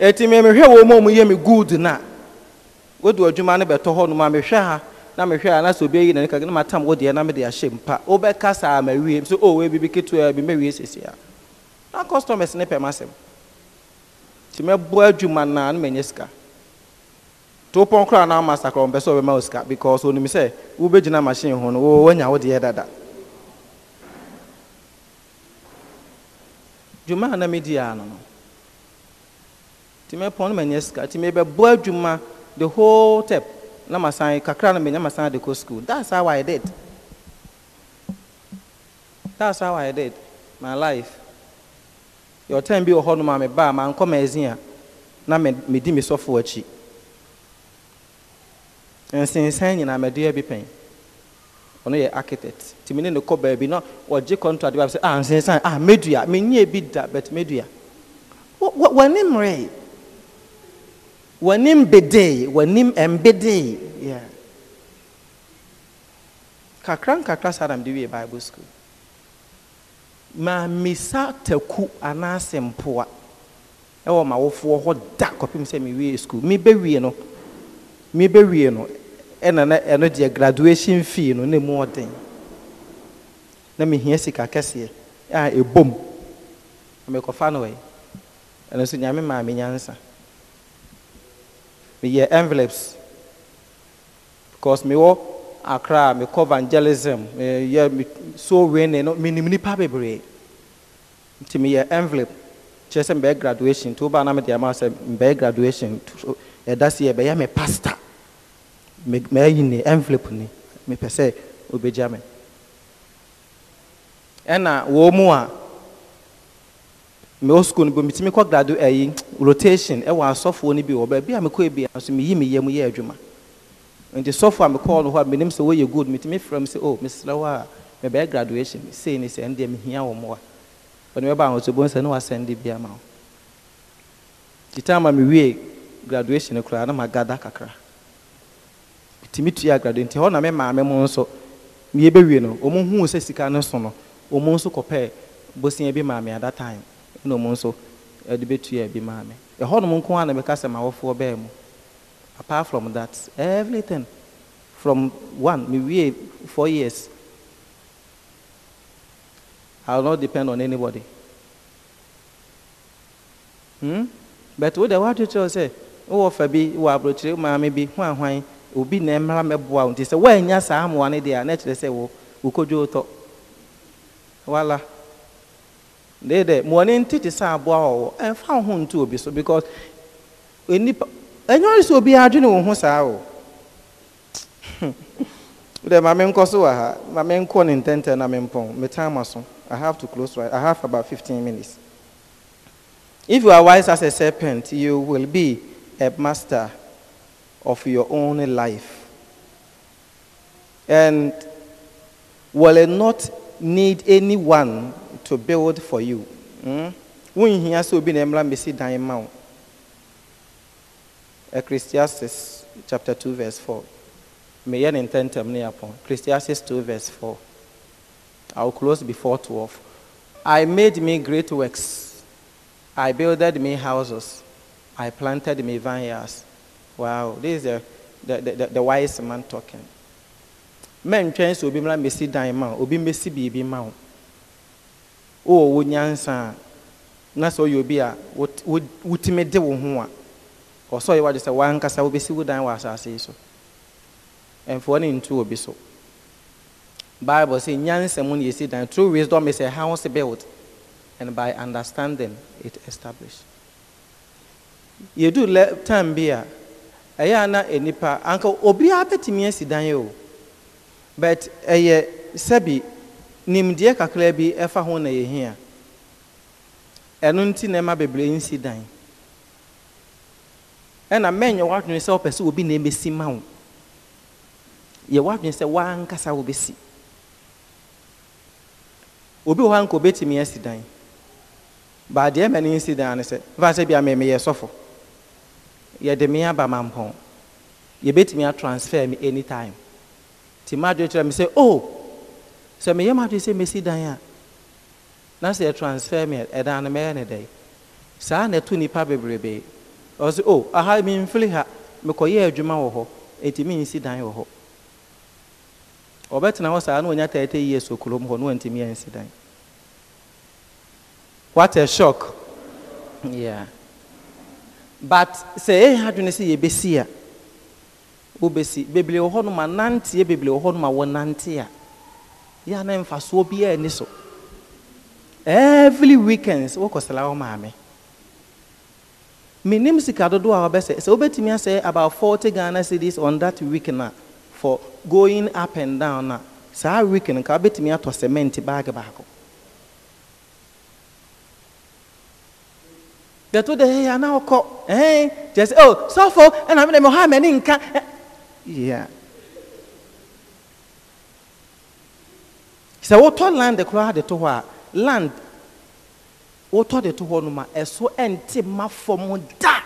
eti me mehwɛ wɔn mu a wɔyɛ me good na wodu adwuma no bɛtɔ hɔ nom a mehwɛ ha na mehwɛ a na sɛ obi ayi na ne kaka na matam wo deɛ na mede ahyɛ mpa wobɛka saa ma wie so o oh, ebi ketu ketewa bi mɛwie sisi a na customers ne pɛm asɛm nti mɛboa adwuma na na nye sika to pɔn koraa na ama sakra ɔmpɛ sɛ ɔbɛma wo sika because onim sɛ wobɛgyina machine ho no wɔanya wo deɛ dada dwuma na medi di ya no nti mɛpɔn no manyɛ sika nti boy. Juma, the whole tep na masan kakra no menya masan school that's how i did that's how i did my life your time bi wɔ hɔ nom a mebaa mankɔ magazine a na medi me sɔfo akyi I'm a bi pɛn ɔno yɛ architect nti mene ne kɔ baabi na ɔgye contract bi a sɛ ah nsensan media. Ah, medua menyɛ bi da but What name? w'anim bedee w'anim mbedee yeah. kakra nkakra saa na mede bible school maamisa taku anaasɛ mpoa ɛwɔ mawofoɔ hɔ da kɔpem sɛ mewie school mebɛwie no mebɛwie no ɛna na no. deɛ graduation fee no na mu ɔden na mehia sika kɛseɛ a ɛbom mekɔfa no ɛ ɛno nso nyame maa me nyansa me meyɛ envelopes because me mewɔ akra mekɔ evangelism Me meyɛ so wene no menim nipa bebree Me meyɛ envelope Just sɛ mbɛyɛ graduation nti ba na mede ama say mbɛyɛ graduation ɛda se yɛ bɛyɛ me pastor mayi ne envelope ni mepɛ sɛ obɛgya me ɛna wɔ mu a mewɔ sukuu no bi metumi kɔ gradu ɛyi eh, rotation e eh, wa asɔfoɔ no bi wɔ baabi a mekɔ ebi mi meyi mi yam yɛ adwuma nti sɔfo a mekɔɔ no hɔ me menim sɛ wɔyɛ good metumi frɛ m sɛ o oh, mesrɛ wo a mebɛyɛ graduation sei ne sɛ ɛndeɛ mehia wɔ mmoa ɔne mɛba ahotobɔ sɛ ne wasɛnde bi ama wo nti tam a graduation no koraa na magada kakra metumi tua graduation nti hɔ na me maame mu nso meyɛbɛwie no ɔmo huu sɛ sika no so no ɔmo nso kɔpɛɛ bosia bi maame at that time na ɔmo nso ɛde bɛtua bi maa mi ɛhɔnom nko ara na bɛka sɛ ma wɔfoɔ bɛɛ mu apart from that everything from one me wie four years i will not depend on anybody hmm but wo de wa atwitwere sɛ wowɔ fa bi wɔ aburokyire maame bi ho ahwan obi na mmara mɛboa wo nti sɛ woanya saa amoa no deɛ a na kyerɛ sɛ wo wokɔdwo wotɔ wala. Voilà deede ma Morning, ntete sɛ aboa wɔ wɔ ɛmfa wo ho nto obi so because onipa ɛnyɛ sɛ obi adwene wo ho saa o dɛ maame nkɔ so wɔ ha maame nkɔ ne ntɛntɛn na mempɔn me time aso i have to close right i have about 15 minutes if you are wise as a serpent you will be a master of your own life and will not need anyone to build for you. Wonhia sɛ obi na mmra mmɛsi dan ma wo. Ecclesiastes chapter 2 verse 4. May I ne ntɛntɛm ne apɔn. Ecclesiastes 2 verse 4. I will close before 12. I made me great works. I builded me houses. I planted me vineyards. Wow, this is the, the, the, the wise man talking. Men twɛn sɛ be mmra mmɛsi dan ma wo. Obi mmɛsi biribi ma wo. Oh, wɔwɔ nyansa a na sɛ ɔyɛ obi a wotumi de wo ho a ɔsɛ ɔyɛ wade sɛ wankasa wobɛsi wo dan wɔ asase so ɛmfoɔ ne ntu obi so bible sɛ nyansa mu ne yɛsi dan true wisdom is a house built and by understanding it established yɛdu lɛ time bi a na enipa anka obi bɛtumi asi dan but ɛyɛ sɛbi nimdeɛ kakra bi ɛfa ho na yɛhia ɛno nti na ɛma bebree nsi dan ɛna mɛnyɛ w'adwene sɛ wopɛ sɛ obi na ɛmɛsi ma wo yɛ w'adwene sɛ w'ankasa wobɛsi obi wɔ hɔ anka obɛtumi asi dan baadeɛ ma ne nsi dan ne sɛ fa sɛ bia mɛmɛ sɔfo yɛde me aba mampɔn yɛbɛtumi atransfer me anytime nti ma adwene kyerɛ me sɛ oh sɛ meyɛ m adwene sɛ mɛsi dan a na sɛ transfer me ɛdan eh, eh, oh, no mɛyɛ ne dɛn saa na ɛto nnipa bebrebee ɔsɛ o aha memfiri ha mekɔyɛ adwuma wɔ hɔ enti mensi dan wɔ hɔ ɔbɛtena hɔ saa na ɔnya tɛɛtɛ yie so kurom hɔ na wantumi ansi eh, dan what a shock yeah but sɛ ɛyɛ adwene sɛ yɛbɛsi a wobɛsi bebree wɔ hɔ nom a nanteɛ bebree wɔ hɔ nom a wɔnante a yɛ a na mfasoɔ biara ni so every weekends wokɔsra wo maame menim sika dodoɔ a wɔbɛsɛ sɛ wobɛtumi asɛ about 40 ghana cities on that week na for going up and down na saa week no nka wobɛtumi atɔ cement bag baako dɛto de hɛyɛ ana wokɔ kyerɛ sɛ o oh, sɔfo ɛna mede mɛhɔ a m'ani nka yeah sɛ wotɔ land koraa de to hɔ a land wotɔ de to hɔ no ma ɛso ɛnte ma fam da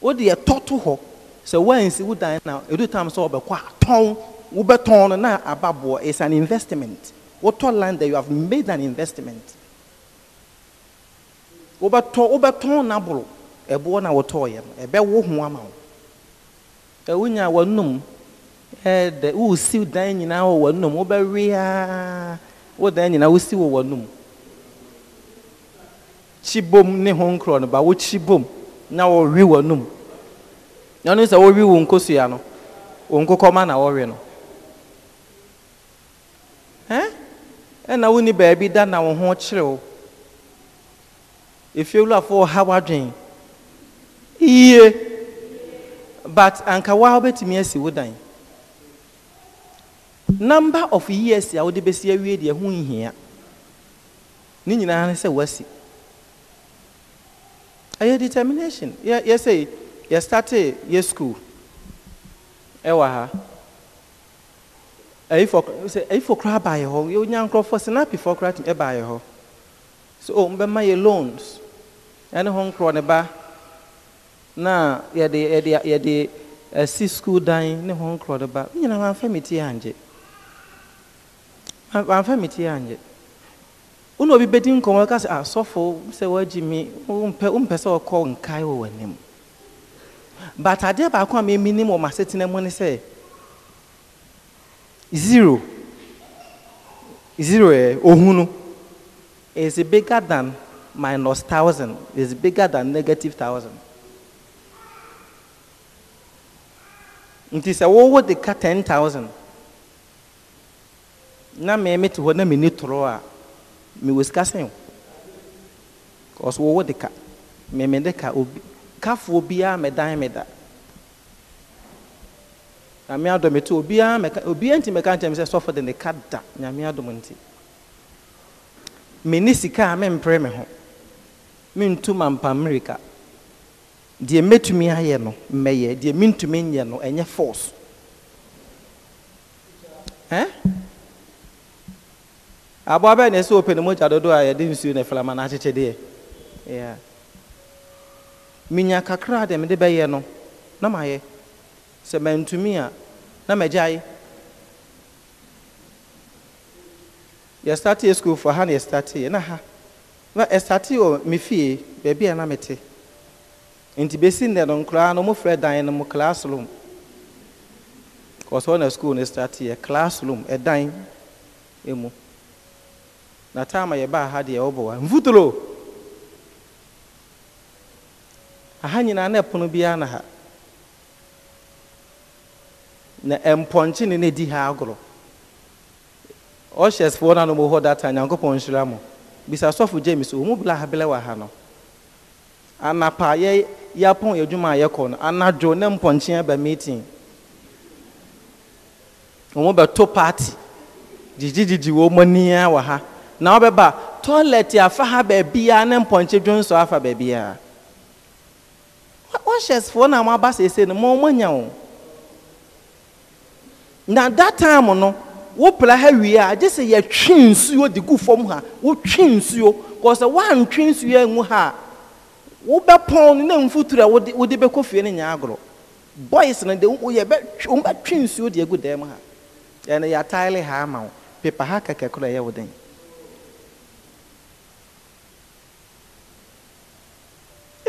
wode ɛtɔ to hɔ sɛ woansi wo dan na ɛdu tam sɛ wɔbɛkɔ a wobɛtɔn no na ababoɔ is an investment wotɔ land that you have made an investment wobɛtɔ wobɛtɔn n'aboro ɛboɔ na wotɔɔyɛ no ɛbɛwo ho ama wo ɛwonya wɔnum ɛɛdɛ wosi dan nyinaa wɔ wɔn nom wobɛwea wo dan nyinaa wosi wɔ wɔn nom ne ho nkorɔ no ba na wɔwe wɔn nom na ɔno sɛ wɔwe wɔn nkosua no na wɔwe no ɛn ɛna woni baabi da na wɔn ho kyerɛw efiewulafo ɔha wadwen but anka wa wobɛtumi dan. number of years a wode bɛsi awie deɛ ho nhia ne nyinaa ne sɛ wasi ɛyɛ determination yɛsɛ yɛstarte yɛ school ɛwɔ ha ayifo koraa baayɛ hɔ yɛnya nkurɔfoɔ sinapifoɔ koraa tumi ɛbaayɛ hɔ so o oh, mbɛma yɛ loans ɛne ho nkorɔ ne ba na yɛde yɛde yɛde asi school dan ne ho nkorɔ ne ba ne nyinaa wɔn afɛn mi ti yɛ angye. mi metie anyɛ wone obi bedi nkọwa bɛdi asọfo sị sɛ asɔfo mi woagye me wompɛ sɛ ɔkɔ nkae wɔ w'anim but adeɛ baako a meminim wɔ m'asetena mu ne sɛ zero zero ɛ ohunu is bigger than minus thousand is bigger than negative thousand nti sɛ wowɔ de ka ten thousand na me te hɔ na mmɛni torɔ a mmɛwɔ sika sɛn o ɔso wɔwɔ de ka mmɛmɛ de ka obi kafoɔ biara mmɛdan mmɛda nyame adɔm ɛte obiara mmɛka obiara nti mmɛka nkyɛn sɛ sɔfo de ne ka da nyame adɔm nti mmɛni sika a mmɛmpere me ho mmentu mampa mmirika deɛ mmetumi ayɛ no mmɛyɛ deɛ mentumi nyɛ no ɛnyɛ force Eh? aboa bɛɛ na ɛsɛ open ne mogya dodoɔ a yɛde nsuo ne flama no akyekyɛ deɛ yeah. Minya kakra de mede bɛyɛ no na mayɛ sɛ mantumi a na magyae yɛstatee sukuulfoɔ ha na na ha na estati o me fie baabi na mete nti bɛsi nnɛ no nkoraa no mofrɛ dan no mu classroom kɔ sɛ school sukuul classroom ɛdan mu imu. na taama yɛbaa ha deɛ wɔbɔ wa mfuturo aha nyinaa na ɛpono biara na ha na mpɔnkye ne na di ha agorɔ ɔhyɛ foɔ no anom hɔ data nyankopɔn nhyira mo bisa sɔfo james ɔmu bla ahabelɛ wɔ ha no anapa yɛ yɛapɔn adwuma a yɛkɔ no anadwo ne mpɔnkye aba meeting ɔmu to party didididi wɔn mu ania wɔ ha na wobɛba toilet afa ha beebi ya ne mpɔnkye dwonsɔ afa beebi baabiaa wɔhyɛsfoɔ na a moaba sese no mɔmanya wo na that time no wopra ha wie a gye sɛ yɛtwe nsuo de gu fam ha wotwe nsuo kɔ sɛ woantwe nsuo angu ha a wobɛpɔn no na mfuturo a wode bɛkɔ fie no nyɛ agorɔ boys no de wombɛtwe nsuo de agu dan mu ha yɛ yɛataele ha ama wo pepa ha kɛkɛkorɔ ɛyɛ wo den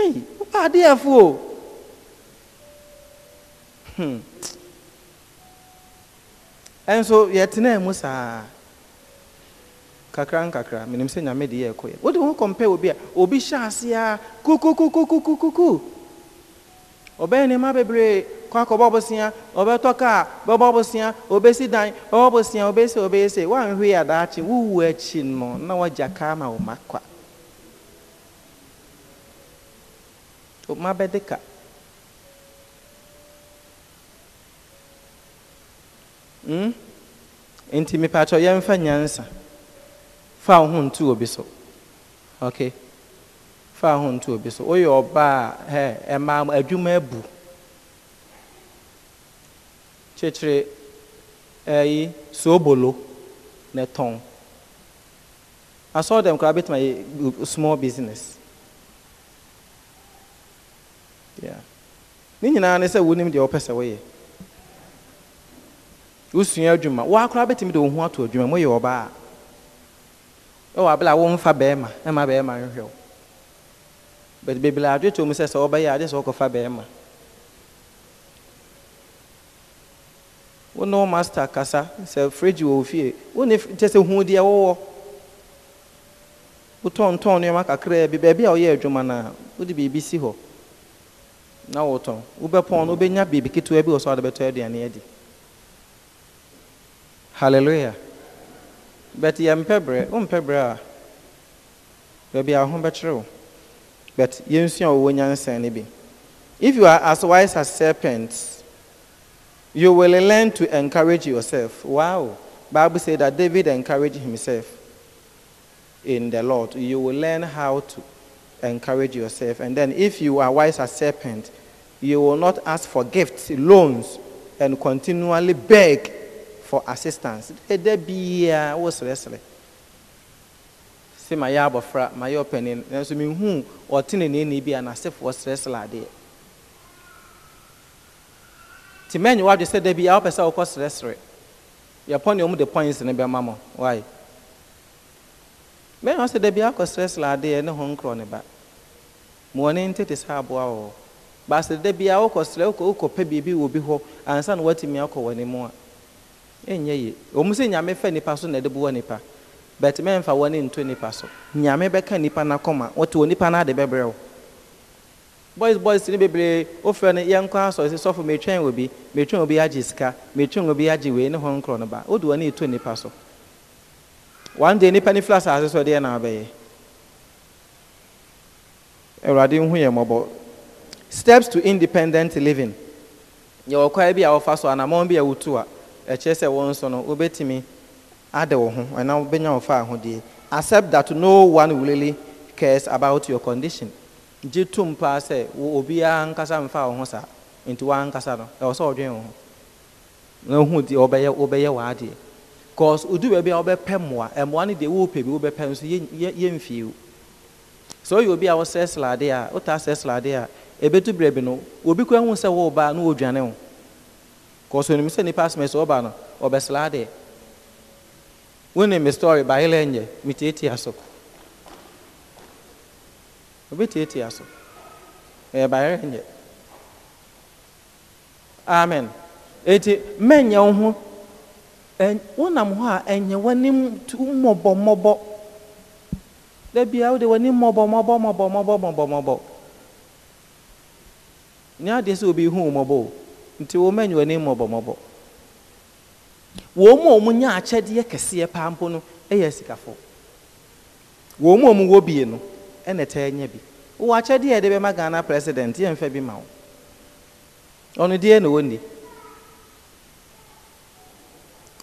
Hey, ụka adịghị efu o nso tena mu saa kakra nkakra menim sɛ nyame de yɛ ɛkɔyɛ wode ho kɔmpɛ obi a obi hyɛ ase a kukukukukukuku ɔbɛyɛ nneɛma bebree kɔ akɔbɔ bosea ɔbɛtɔ kaa bɛbɔ bosea obɛsi dan ɔbɔ bosea obɛsi obɛyɛ sɛ woanhwee adaakye wowu akyi no na woagya kaa ma wo ma kwa Uma bedeka. Hmm? Nti mipatɔ yɛmfa nyansa. Fa wo ho ntu obi so. ok Fa wo ho ntu obi so. Woyɛ ọba a ɛma adwuma ebu Kyekyere ɛyi soobolo na tɔn. I saw koraa bɛtuma yɛ small business. ne nyinaa ne sɛ wonim deɛ wɔpɛ sɛ woyɛ wosua adwuma woa bɛtumi de wo ho ato adwuma moyɛ ɔbaa a ɛwɔ abela a womfa bɛɛma ɛma bɛɛma nhwehwɛ wo but bebile adwe to mu sɛ sɛ wɔbɛyɛ sɛ wokɔfa kasa sɛ wɔ wo fie kyɛ sɛ hu deɛ wowɔ wotɔntɔn kakraa bi baabi a woyɛ si hɔ na wotɔn wobɛpɔn no wobɛnya biribi ketewa bi wɔ so a de aduane adi hallelujah but yɛmpɛ berɛ wompɛ berɛ a baabi a ho bɛkyerɛ wo but yɛnsua wɔwɔ no bi if you are as wise as serpents you will learn to encourage yourself wow bible said that david encouraged himself in the lord you will learn how to encourage yourself. And then, if you are wise as serpent, you will not ask for gifts, loans, and continually beg for assistance. There be See my abofra, my opinion. And so me who or tin in any be an asif was wrestler there. Timen, you have to say there be a person who was wrestling. You're upon your the points in the mama Why? bɛrima sɛ dabi akɔsrɛsrɛ adeɛ ne ho nkorɔ ne ba ma ɔne sɛ aboa wɔ baasa bi a biribi wɔ bi hɔ ansa na akɔ wɔ ne mu a ɛnyɛ ye ɔmu sɛ nyame nipa so na ɛde boɔ nipa but ne nipa so nyame bɛka nipa wɔte wɔ nipa bɛbrɛ boys boys bebree asɔ sɔfo agye sika agye wei ne ho nkorɔ ba one day nipa ne fila asase so deɛ na abɛyɛ awurade nhu yɛ mmɔbɔ steps to independent living yɛwɔ kwa bi a wɔfa so anammɔn bi a wotu a ɛkyerɛ sɛ wɔn nso no wobɛtumi ade wo ho ɛna wobɛnya wo fa ahodeɛ accept that no one really cares about your condition ji gye tom paa obi obiara nkasa mfa wo ho saa nti woankasa no ɛwɔ sɛ ɔdwene wo ho na ohu deɛ wɔbɛyɛ w'adeɛ cause odu a wobɛpɛ mmoa mmoa no deɛ wopɛ bi wobɛpɛ nso yɛmfie o sɛ ɔyɛ obi a wɔsɛ slade a wotaa sɛ slade a ɛbɛtu berɛ bi no obi koa hu sɛ woba na wɔdwane wo cause onim sɛ nnipa asomɛ sɛ woba no ɔbɛsladeɛ wonim me story nyɛ metietia so so ɛyɛ nyɛ amen eti wo wonam hɔ a ɛnyɛ w'anim mmɔbɔmmɔbɔ da bia wode w'anim mmɔbɔmmɔbɔmmɔbɔmmɔbɔmmɔbɔ ne adeɛ sɛ obi hu mmɔbɔ o nti wɔma nyɛ w'anim mmɔbɔmmɔbɔ wɔn mu a wɔn nya akyɛdeɛ kɛseɛ paa mpo no yɛ sikafo wɔn mu a wɔn wɔ bie no ɛna ɛtɛ nya bi wɔ akyɛdeɛ a yɛde bɛma ghana president yɛmfa bi ma wo ɔno deɛ na wɔnni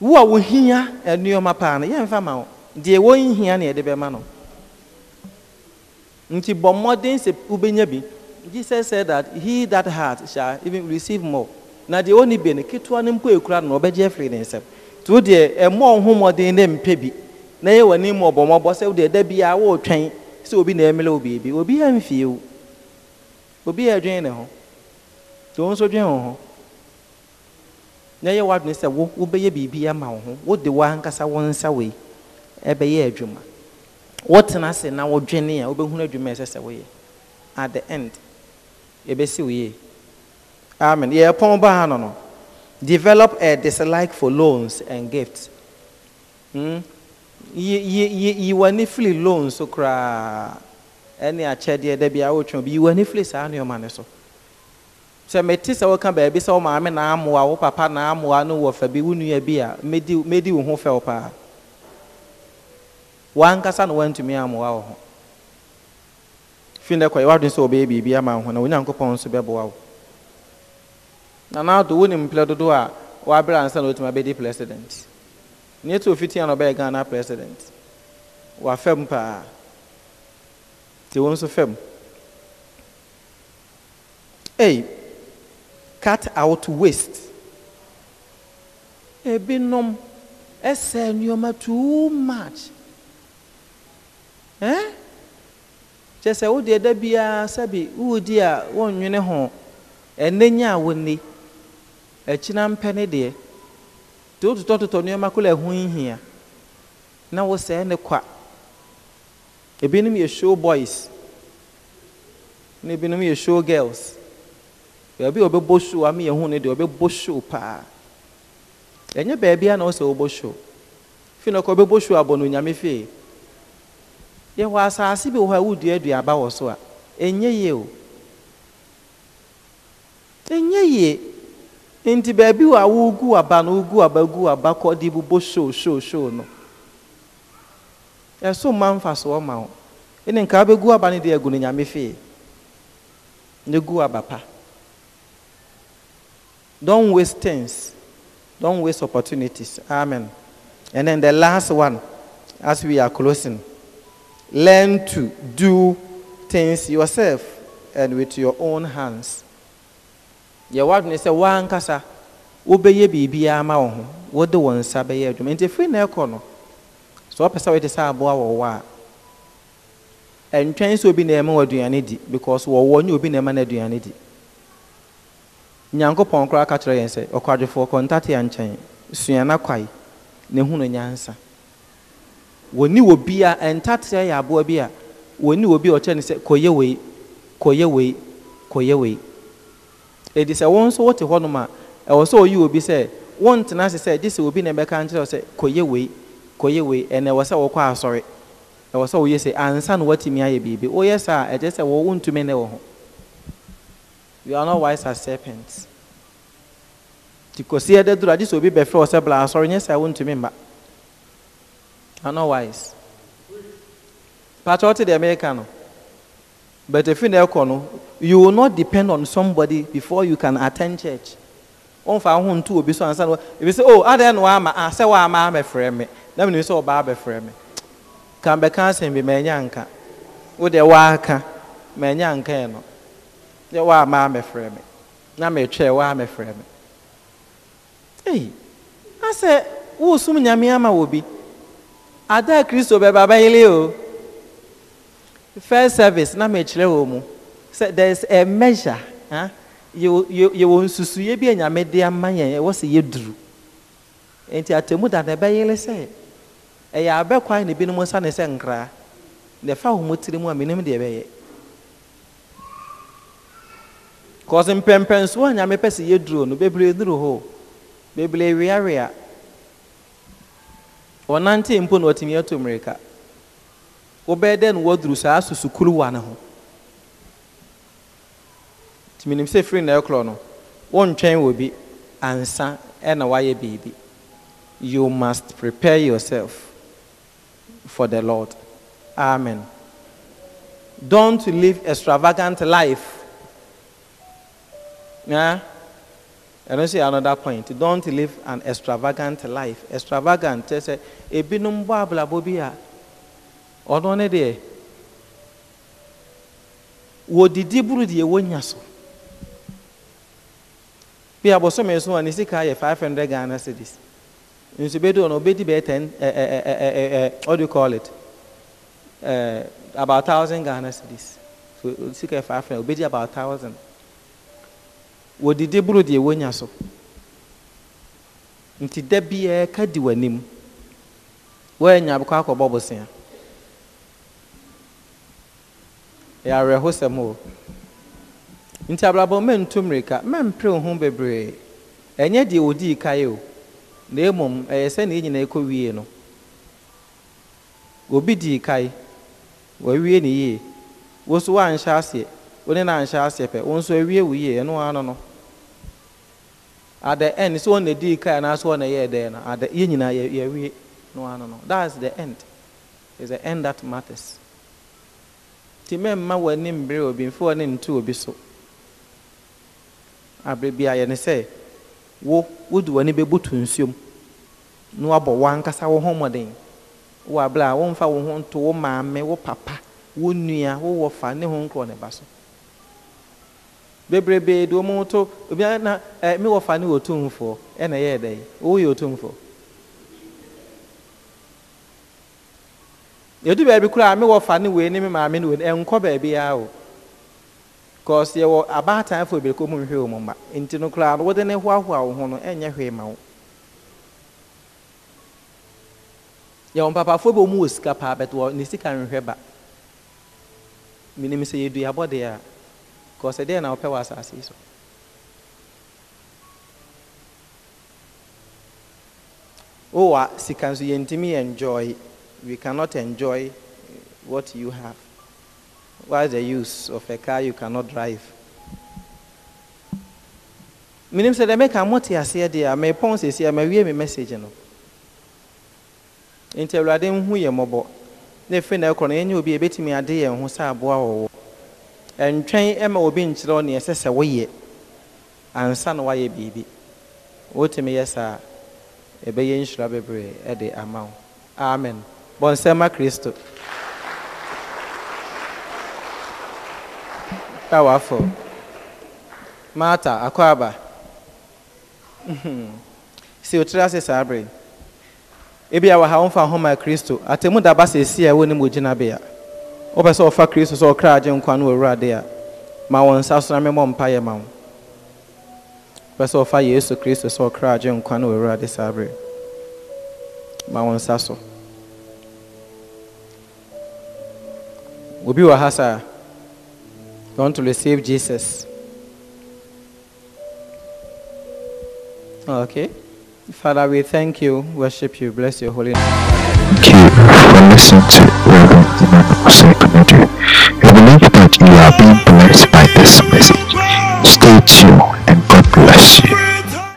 wo a wohia nneɛma paa no yɛmfa ma wo deɛ wɔnhia ne yɛde bɛma no nti bɔ mmɔden sɛ wobɛnya bi jesus said that he that heart shall even receive more na deɛ ɔni bi no ketewa no mpo ekura no ɔbɛgye afiri ne nsam nti wo deɛ ɛmɔ ɔho mmɔden ne mpɛ bi na yɛ w'ani mu ɔbɔmmɔbɔ sɛ wo deɛ da biara wɔretwɛn sɛ obi na ɛmele wo biribi obi amfie wo obi yɛ adwene ne ho nti wɔn nso dwene wɔn ho na ɛyɛ w'adwene sɛ wo wobɛyɛ biribi ama wo ho wode w'ankasa wo nsa wei ɛbɛyɛ adwuma wotena ase na wodwene a wobɛhunu adwuma ɛsɛ sɛ woyɛ at the end yɛbɛsi wo yie amen yɛyɛ pɔn baa no no develop a dislike for loans and gifts hmm? yi w'ani firi loans so koraa ɛne akyɛdeɛ da bi a wotwe bi yi w'ani firi saa nneɛma ne so Se mete sɛ woka baabi sɛ wo maame na amoa wo papa na amoa no wɔ fa bi wo nua bi a mɛdi wo ho fɛw paa wankasa na woantumi amoa wo ho na ama ho na onyankopɔn nso bɛboa wo nanaado wonim mplɛ a ansa president neɛ fiti ofitia na ɔbɛyɛ president wafempa paa nti wo nso ei hey, cut out waste. Ebinom ɛsɛ nneɛma too much. Ɛn? Kyɛ sɛ wode ɛda sabi sɛbi wodi a wɔnnwene ho ɛnɛ nya a wɔnni ɛkyina mpɛ ne deɛ. to wototɔtotɔ nneɛma kola ɛho nhia na wosɛɛ ne kwa. Ebinom yɛ show boys ne ebinom yɛ show girls. baabi a ɔbɛbɔ show ame yɛn ho no deɛ ɔbɛbɔ show paa ɛnyɛ baabi a na ɔsɛ ɔbɔ show fi na ɔkɔ ɔbɛbɔ show abɔ no nyame fie yɛwɔ asaase bi wɔ hɔ a wodua aduaba wɔ so a ɛnyɛ yie o ɛnyɛ yie nti baabi wɔ a wogu aba no wogu aba gu aba kɔ de bobɔ show show show no ɛso mma mfasoɔ ma wo ɛne nka wobɛgu aba no deɛ agu no nyame fie ne gu aba pa Don't waste things. Don't waste opportunities. Amen. And then the last one, as we are closing, learn to do things yourself and with your own hands. Yɛwɔ adwene sɛ wa wobɛyɛ biribiara ma wo ho wode wo nsa bɛyɛ adwuma nti firi na ɛkɔ no sɛ wɔpɛ sɛ wode wa and wɔwɔ a ɛntwɛn sɛ obi na ɛma wɔ aduane di because wɔwɔ nyɛ obi na ɛma no aduane di nyankopɔn koraa ka kyerɛ yɛn sɛ ɔkwadwofoɔ kɔntate yɛ nkyɛn sua na kwae na ehunu nyansa wɔni wɔ bi a ɛntateɛ yɛ aboa bi a wɔni wɔ bi a ɔkyerɛ ne sɛ kɔyɛ wei kɔyɛ wei kɔyɛ wei edi sɛ wɔn nso wɔte hɔnom a ɛwɔ sɛ ɔyi obi sɛ wɔn tena ase sɛ gye sɛ obi na ɛbɛka nkyerɛ sɛ kɔyɛ wei kɔyɛ wei ɛna ɛwɔ sɛ wɔkɔ asɔre ɛwɔ sɛ wɔyɛ sɛ ansa na ayɛ biribi wɔyɛ sɛ wɔn ntumi ho. you are not wise as serpents nti kɔsi ɛdɛ duro agye sɛ obi bɛfrɛ ɔsɛ bla asɔre nyɛ sɛ wontumi mba you are not wise patrɔ te deɛ meka no but efi na ɛkɔ no you will not depend on somebody before you can attend church wɔnfa ho ntu obi so ansa na ebi sɛ oh adeɛ ah, na wama a ah, sɛ wama abɛfrɛ me na mi ni sɛ ɔbaa abɛfrɛ me kan bɛka asɛm bi mɛ nya nka wo deɛ waka mɛ nya nka yɛ no. yɛ wɔ ama amɛfrɛ me na mɛtwɛ wɔ amɛfrɛ me ei Eyi, sɛ wosom nyame ama wɔ bi ada kristo bɛba bɛyele o first service na mɛkyerɛ wɔ mu sɛ there is a measure huh? yɛwɔ nsusuyɛ bi a nyame de ama yɛn ɛwɔ sɛ yɛduru nti atemu da na ɛbɛyele sɛ ɛyɛ abɛkwan na ebinom nsa ne sɛ nkraa na ɛfa wɔn tiri mu a menim deɛ ɛbɛyɛ kɔsi mpɛmpɛnso a nyame pɛ sɛ yɛduro no bebree duro hɔ bebree weawea ɔnante mpo na ɔtumi ato mmirika wobɛyɛ dɛ no wɔduru saa susukuruwa ne ho tumi nim sɛ firi na ɛkorɔ no wɔntwɛn wɔ bi ansa ɛna wayɛ biribi you must prepare yourself for the lord amen don't live extravagant life yeah? I don't see another point. Don't live an extravagant life. Extravagant, say, ebinum babla bobia. Ọdọ ne deɛ, wodidi buru deɛ wonya so. Bi abosome so a ne sika yɛ five hundred Ghana cedis. Nso bedi ɔno di bɛyɛ ten ɛ ɛ ɛ ɛ what do you call it? Uh, about thousand Ghana cedis. So sika yɛ five hundred di about thousand. wodidi boro deɛ wonya so nti da biara ka di w'anim wɔanya akɔ akɔbɔ bosea ɛyɛ awerɛhosɛm o nti abrabɔ mɛntu mmirika mɛmpere wo ho bebree ɛnyɛ deɛ wɔdii kae o na mmom ɛyɛ sɛ ne nyinaa ɛkɔ wie no obi dii kae wɔawie ne yie wo so woanhyɛ aseɛ wo ne no anhyɛ aseɛ pɛ wo nso awie wo yie ɛno ara no no at the end sɛ the day and anaasɛ ɔna yɛɛ year then. at the yɛ nyinaa yɛwie no no that's the end It's the end that matters nti mɛmma w'ani mbere obi mfe wɔ ne nto be so abere be a yɛne sɛ wo wode w'ani bɛbutu nsuom na wabɔ w'ankasa wo ho mmɔden wɔ abere a womfa wo ho nto wo maame wo papa wo nua wo wɔfa ne ho nkorɔ ne bebrebe do wɔn to obiara na ɛɛ eh, mi wɔ fa ne wɔ tumfoɔ ɛna ɛyɛ dɛ wɔyɛ otumfoɔ edu baabi koraa mi wɔ fa ne wɔ anim maame ne wɔ ɛnkɔ baabi ara o kɔɔse yɛwɔ abaataafo bebree kɔn mu nhwɛ wɔn mma nti no koraa no wɔde ne hoahoa wɔn ho no ɛnyɛ hwee ma wo yɛwɔ mpapafoɔ bi wɔn wɔ sika paa bɛtɛ wɔ sika nhwɛ ba minim sɛ yɛdu yabɔ deɛ a because today na wɔpɛ wɔ asase yi so wowɔ a sika enjoy we cannot enjoy uh, what you have what's the use of a car you cannot drive menim sɛ deɛ mɛka mote aseɛ a a message a ntwɛn ma obi nkyerɛ wo neɛ ɛsɛ sɛ woyɛ ansa na woayɛ biribi wotumi yɛ saa ɛbɛyɛ nhyira bebree ɛde ama wo amen bɔnsɛma kristo A powerful marta akɔ aba mhm. si otiri ase saa bere ebi a wɔ ha wɔmfa ho ma kristo atemu daba sɛ esi a ɛwɔ ne mu gyinabea wopɛ sɛ ɔfa kristo sɛ ɔkra agye nkwa no wɔwurade a ma wɔn nsa so na memmɔ mpayɛ ma wo wopɛ sɛ ɔfa yesu kristo sɛ ɔkra agye nkwa no wɔwurade saa berɛ ma wɔn nsa so obi wɔ ha saa you want to receive jesus okay Father, we thank you, worship you, bless your holy name. Thank you for listening to Reverend Emmanuel better. you believe that you are being blessed by this message, stay tuned.